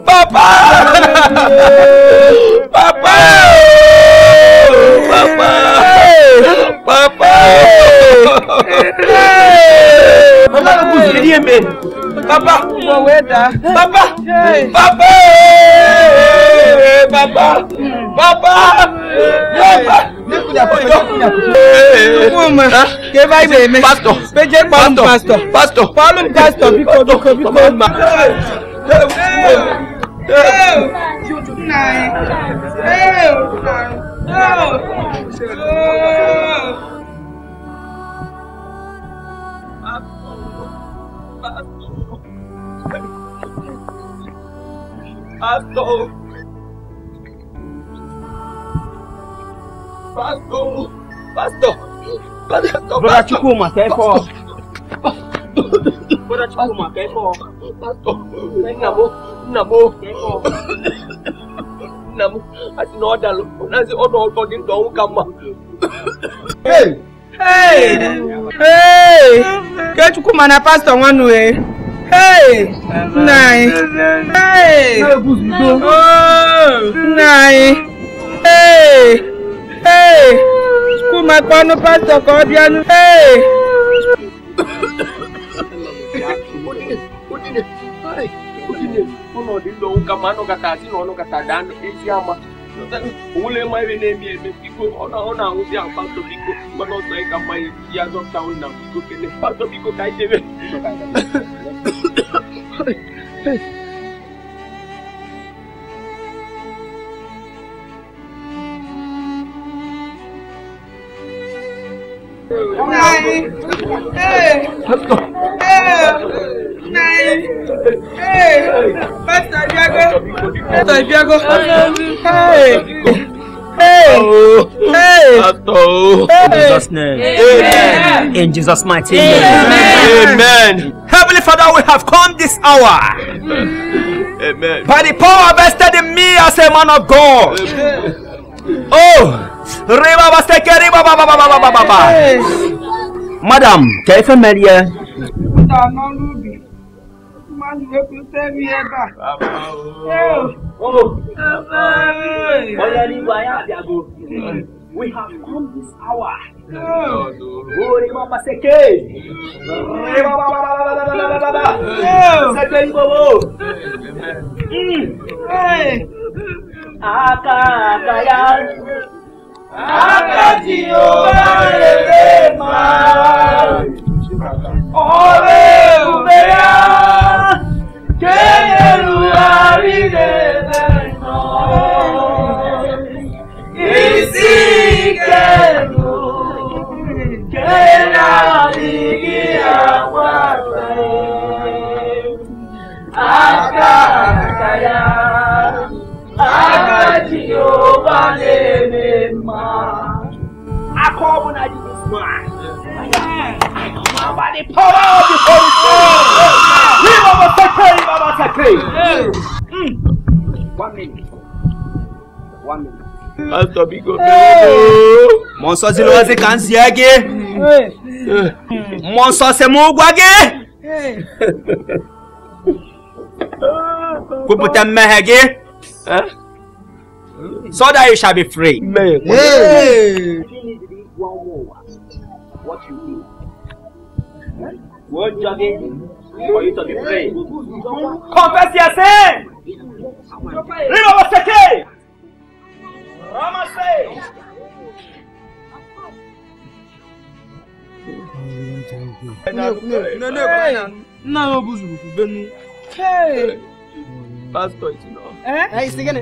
Papa. Papa. Papa. Papa. Mama no go see game menu. Papa. Papa. Papa. Papa. Papa. Papa. Papa. Papa ké báyìí èmi péjé pọ́lùm pásítọ̀ pásítọ̀ pọ́lùm pásítọ̀ bíkó bíkó bíkó. Pastor. Pastor. Pastor. Brother Chukwuma, kẹ́kọ̀ọ́. Brother Chukwuma, kẹ́kọ̀ọ́. Nnamu, nnamu, kẹ́kọ̀ọ́. Nnamu, àti na ọ̀dà lọ́wọ́ náà sí ọ̀dọ̀ ọ̀dọ̀ ní ìdánwò ká mà. Hey! Hey! Ke Chukwuma na pastor nwanu eh. Hey! Nna anyị. Hey! Oh! Nna anyị. Hey! Hey! Yesu ma anụ kata asị na ọnụ kata daa ezi Nine. Hey. Hey. Nine. Hey. Pastor Diago. Pastor Diago. Hey. Hey! Hey! In Jesus' name. In Jesus' mighty name. Amen. Heavenly Father, we have come this hour. Amen. By the power vested in me as a man of God. Amen. Oh! Riba Baseke, Riba Baba Baba Baba Baba. Madam, ka ife mmeri ya. We have come this hour. Ori mama seke. Ori mama mama mama Seke ibobo. Aka wákàtí ó bá rèé máa ọ̀rẹ́ isi kéèyàn àríde lẹ́nà ìsìnkẹ́lù kéèyàn àríkí àwọn àgbẹ̀ àkàkàyà. Aka Jehovah name man. I call when I do this man. I come by the power of the Holy Spirit. We Baba Sakre, Baba Sakre. One minute. One minute. Pastor Big O. Mo ń sọ sí lọ́wọ́ sí so that you shall be free. Amen. Hey. What you do? What jogging for you to be free? Confess your sin. Read over Seke. Rama say. No, no, no, no, no, no, no, no, no, no, no, no, no, no, no, pásítọ̀ ìtùnà. ẹ ẹ ìsìnkẹ́ni.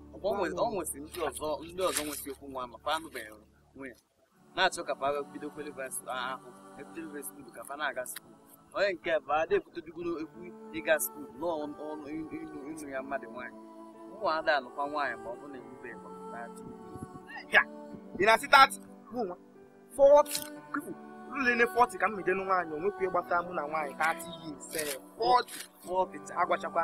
ọ nwesịrị ndị ọzọ ndị ọzọ nwesị okwu nwa makwa anụbeghị nwe ya na-achọ ka paga bido kwelivesị ah, ahụ epitelivesị skuul ka fa na-aga skuul onye nke bụ ada ebutodigoro ekwu ịga skuul n'ọnụ ịnụ ya mmadụ nwaanyị ụmụada anụkwa nwaanyị ma ọ na e ka m mejenu nwaanyị onwekwu ịgbata mụ na nwaanyị ka yi agwachakwa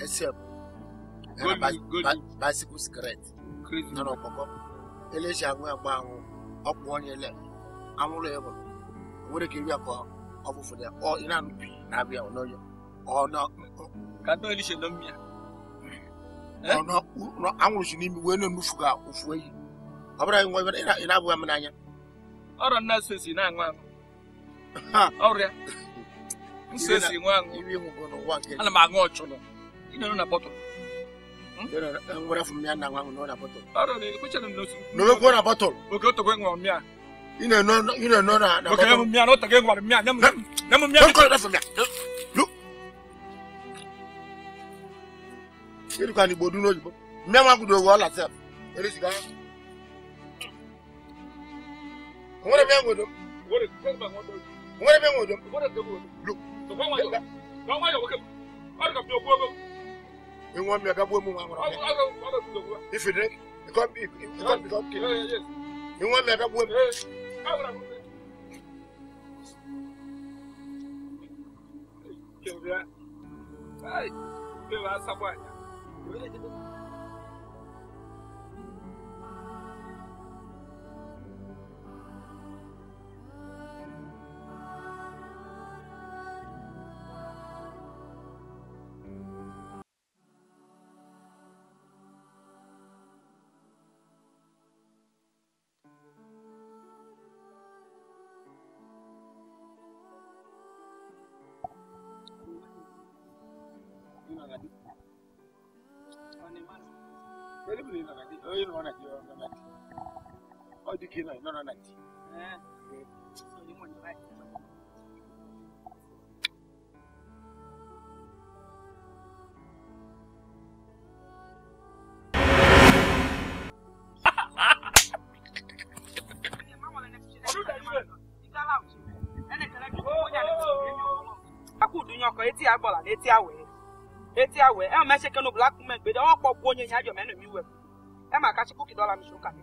except bicycle skirt nọ ọkpọkọ eleji anwụ agba anwụ ọkpụ onye le anwụrụ ya bụrụ nwere ka iri akọ ọfụfụ ya ọ ị na na-abịa n'ọyọ eh? anwụrụ si n'imi wee na-enufu ka ofu eyi ọ bụrụ nwa ị na-abụghị n'anya nna sosi na-aṅụ aṅụ ọrịa nsosi nwa ana m inaona poto hmm? ngora fumia na ngwangu nona poto aro ni kucha na nosu no me kuona poto oke to kwengwa mia ina no ina no na na oke na mia no tage ngwa mia nyam nyam mia no ko na fumia lu kiru kan ibodu no jibo mia ma gudo wo la se ere siga ngora mia ngodo ngora kwengwa ngodo ngora mia ngodo ngora tego lu to kwengwa yo kwengwa yo oke aro ka pio kwengwa You want me to go move around? If you drink, you can't be, you can't become king. You want me to go move? Hey, you are someone. kí náà náà náà ti. etí agbọ̀là létí àwẹ̀ létí àwẹ̀ ẹ̀ ọ́n mẹ́sẹ̀kẹ́ ní black women gbèdé ọ̀pọ̀ gbóyin ìyájọ́ mẹ́nu mi wẹ̀ ẹ̀ máa ká sí kókì dọ́là mi sókà mi.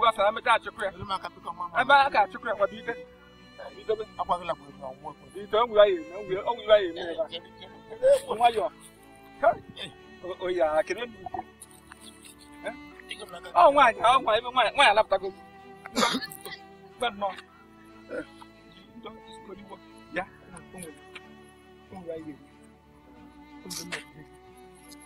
Wa sa me ta chukwe. E ba ka chukwe kwa bide. Bide be akwa la kwa kwa kwa. Bide on wa ye, on wa on wa ye me ba. On wa yo. Ka. O ya kene ni. Eh? Oh wa ya, oh wa, wa wa la pta ko. Ba no. Eh. Don't just go to work. Yeah. On wa ye. On wa ye.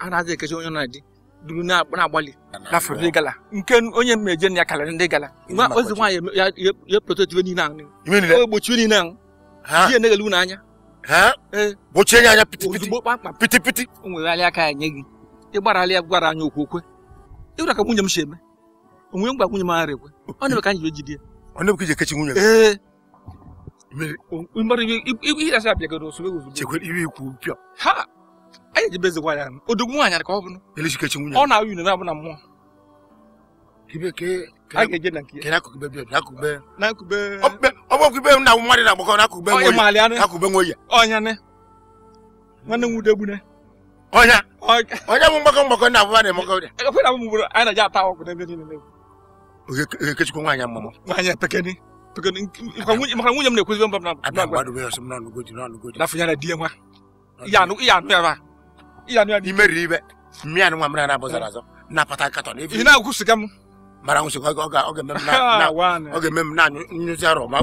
a na ekechi onye na dị duru na-agbalị gafere ndị gala nke onye mmeje na ya karịrị ndị gala ozi nwaanyị ya prototibe niile ahụ gbochie niile ahụ ihe na-egelu anya e. gbochie ya anya pitipiti pitipiti o aka ya nye gị ịgbarala ya gwara anya okwu okwe ka nwunye m si eme nwunye m ekwe ọ na-eme ka anyị jide ee ihe abịagoro ozugbo iwe anyị ji bezikwa ya odogwu nwaanyị ka ọ bụrụ elizikechi nwunye ọ na-awụ unu na-abụ na mmụọ a ga-eje na nke ọbụkube na awụ mmadụ na-agbakọ na akụkube akụkube nwoye ọnya ne nwanne m wude gbune ọnya ọnya bụ mgbakọ mgbakọ na abụba na-emekọ ọrịa ekwe na mgburu anyị na-eji ata ọgwụ n'ebe niile n'egwu ogekechukwu nwaanyị mmụmụ nwaanyị pekeni maka nwunye m na-ekwuzibe mba m na agwa na fụnyana di ya nwa ihe anụ ya ma imeriri ibe mmiri nwa mmiri na-abụzara azọ eh. napata katọn ị na-agwụsịga m mara nwụsịga ọ ga-eme m na anyụ nyụzi arọ ma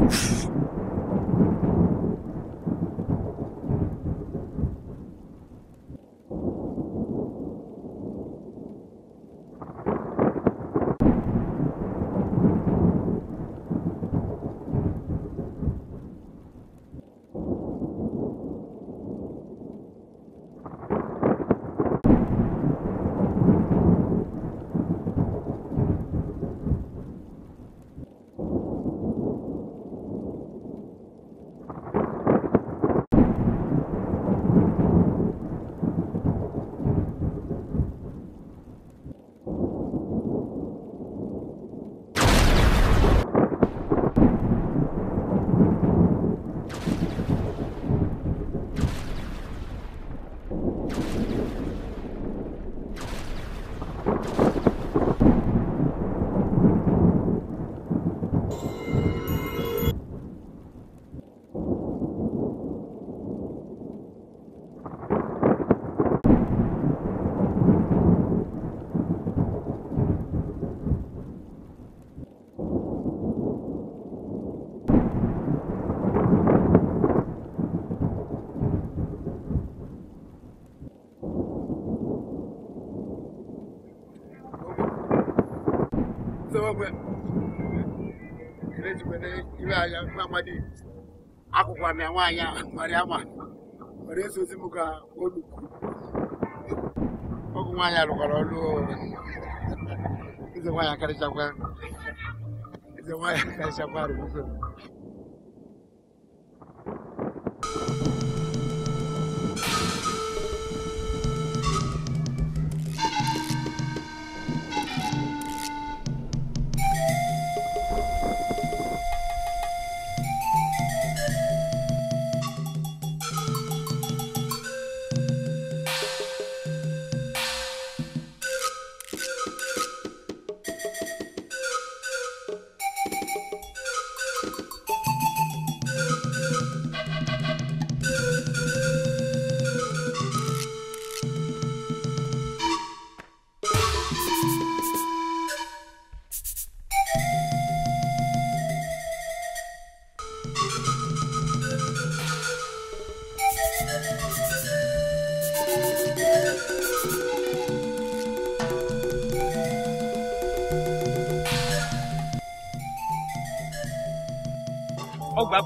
iwe anya nwa amadi akwụkwọ na nwaanyị a mara ama were esozi m ka olu ọgụ nwaanyị arụkwara ọrụ eze nwaanyị akarịchakwa eze nwaanyị akarịchakwa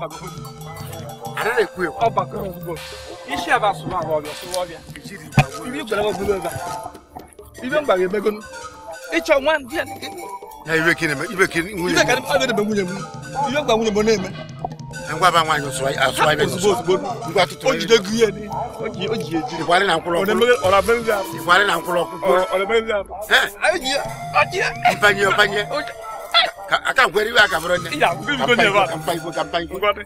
anana ekue hɔ ɔba kɔ ɔfubɔ isi aba soma hɔ ɔbɛ so wɔbia ibi gbɛlɛ wɔ gbɛlɛ ba ibi mba yɛ mɛgɔnu itsɔ wan diɛ ne kini. na ibe kini mɛ ibe kini nwunye mu ibe kini ɔbɛ de bɛ nwunye mu ibe gba nwunye mu n'eme. ngwa bá nwa yọsọ asọ ayé yọsọ ngwa tutu ayé. ojide gu yé ni oji oji eji. ìwárí na nkulọ kúrò ọ̀rọ̀ abẹ́rẹ́ ìwárí na nkulọ kúrọ̀ ọ̀rọ̀ abẹ́rẹ́ ìwárí. ẹ ayé jìyà ọjìyà. ọbànyẹ ọbànyẹ. ka gwere iwe a ka mpa nne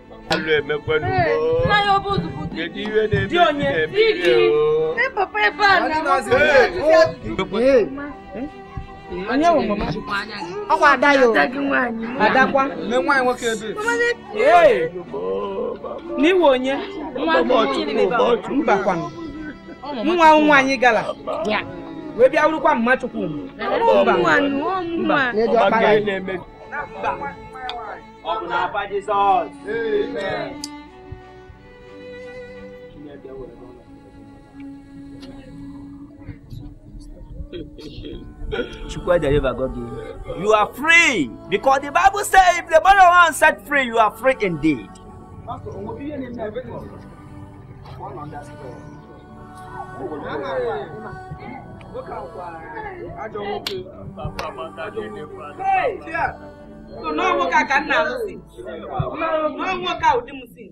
Alo eme kwenu eh, mo. Na yo buzu buzu. Keji we ne bi ne bi o. Ne eh, papa e ba na mo. Eh. Onye wo mama. Ọkwa ada yo. Adakwa. Me nwanyi nwoke ebe. Eh. N'iwe onye. Mbakwa. Nwa nwa anyị eh. gala. Wee bịa wurukwa mma chukwu. Mba. Mba. Mba. Mba. Mba. Mba. Mba. Open up for Jesus. Amen. you. are free because the Bible says if the mother one set free, you are free indeed. Hey, n'ọnwoke a ka nna alụsị n'ọnwoke a ụdị m si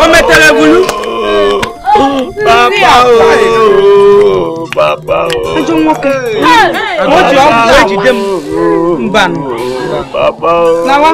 o metere bulu papa o bàbá o. ẹjọ wọn kẹ wọn jọ ọ bọ èjì dé mu nbànú. bàbá o.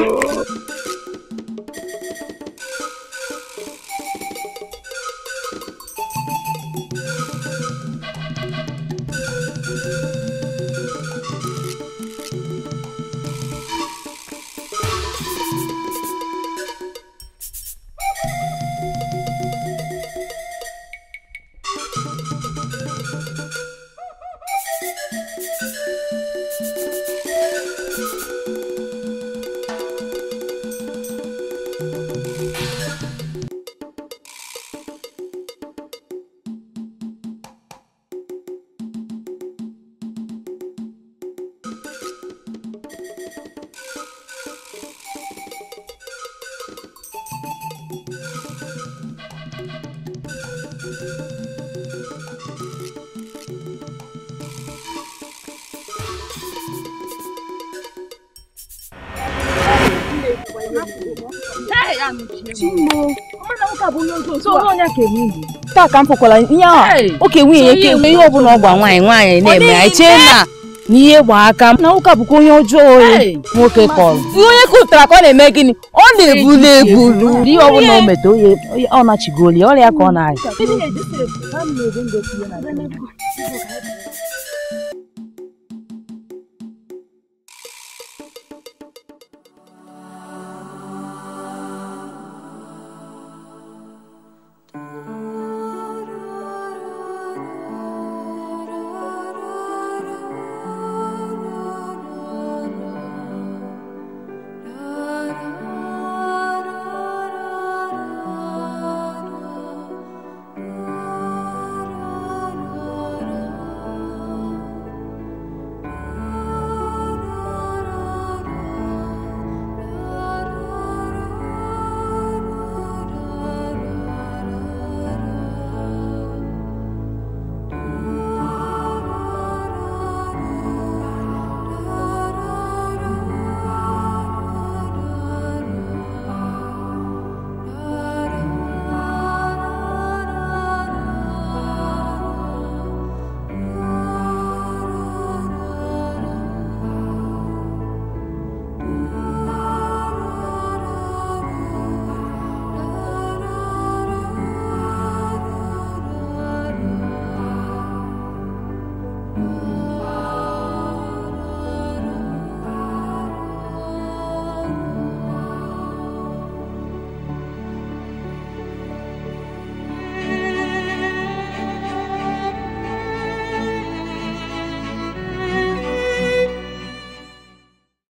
taa ka m fụkwara ihe a oke nwunye ya ke ihe ọ ọ gba nwaanyị nwaanyị na-eme anyị chee na n'ihe gba aka na ụka bụkwa onye ọjọọ oyi nwoke kọrọ onye kụtara ka ọ na-eme gịnị ọ na-ebulu ebulu ihe bụla o meta oye ọ nachigoli ọrịa ka ọ na-ayị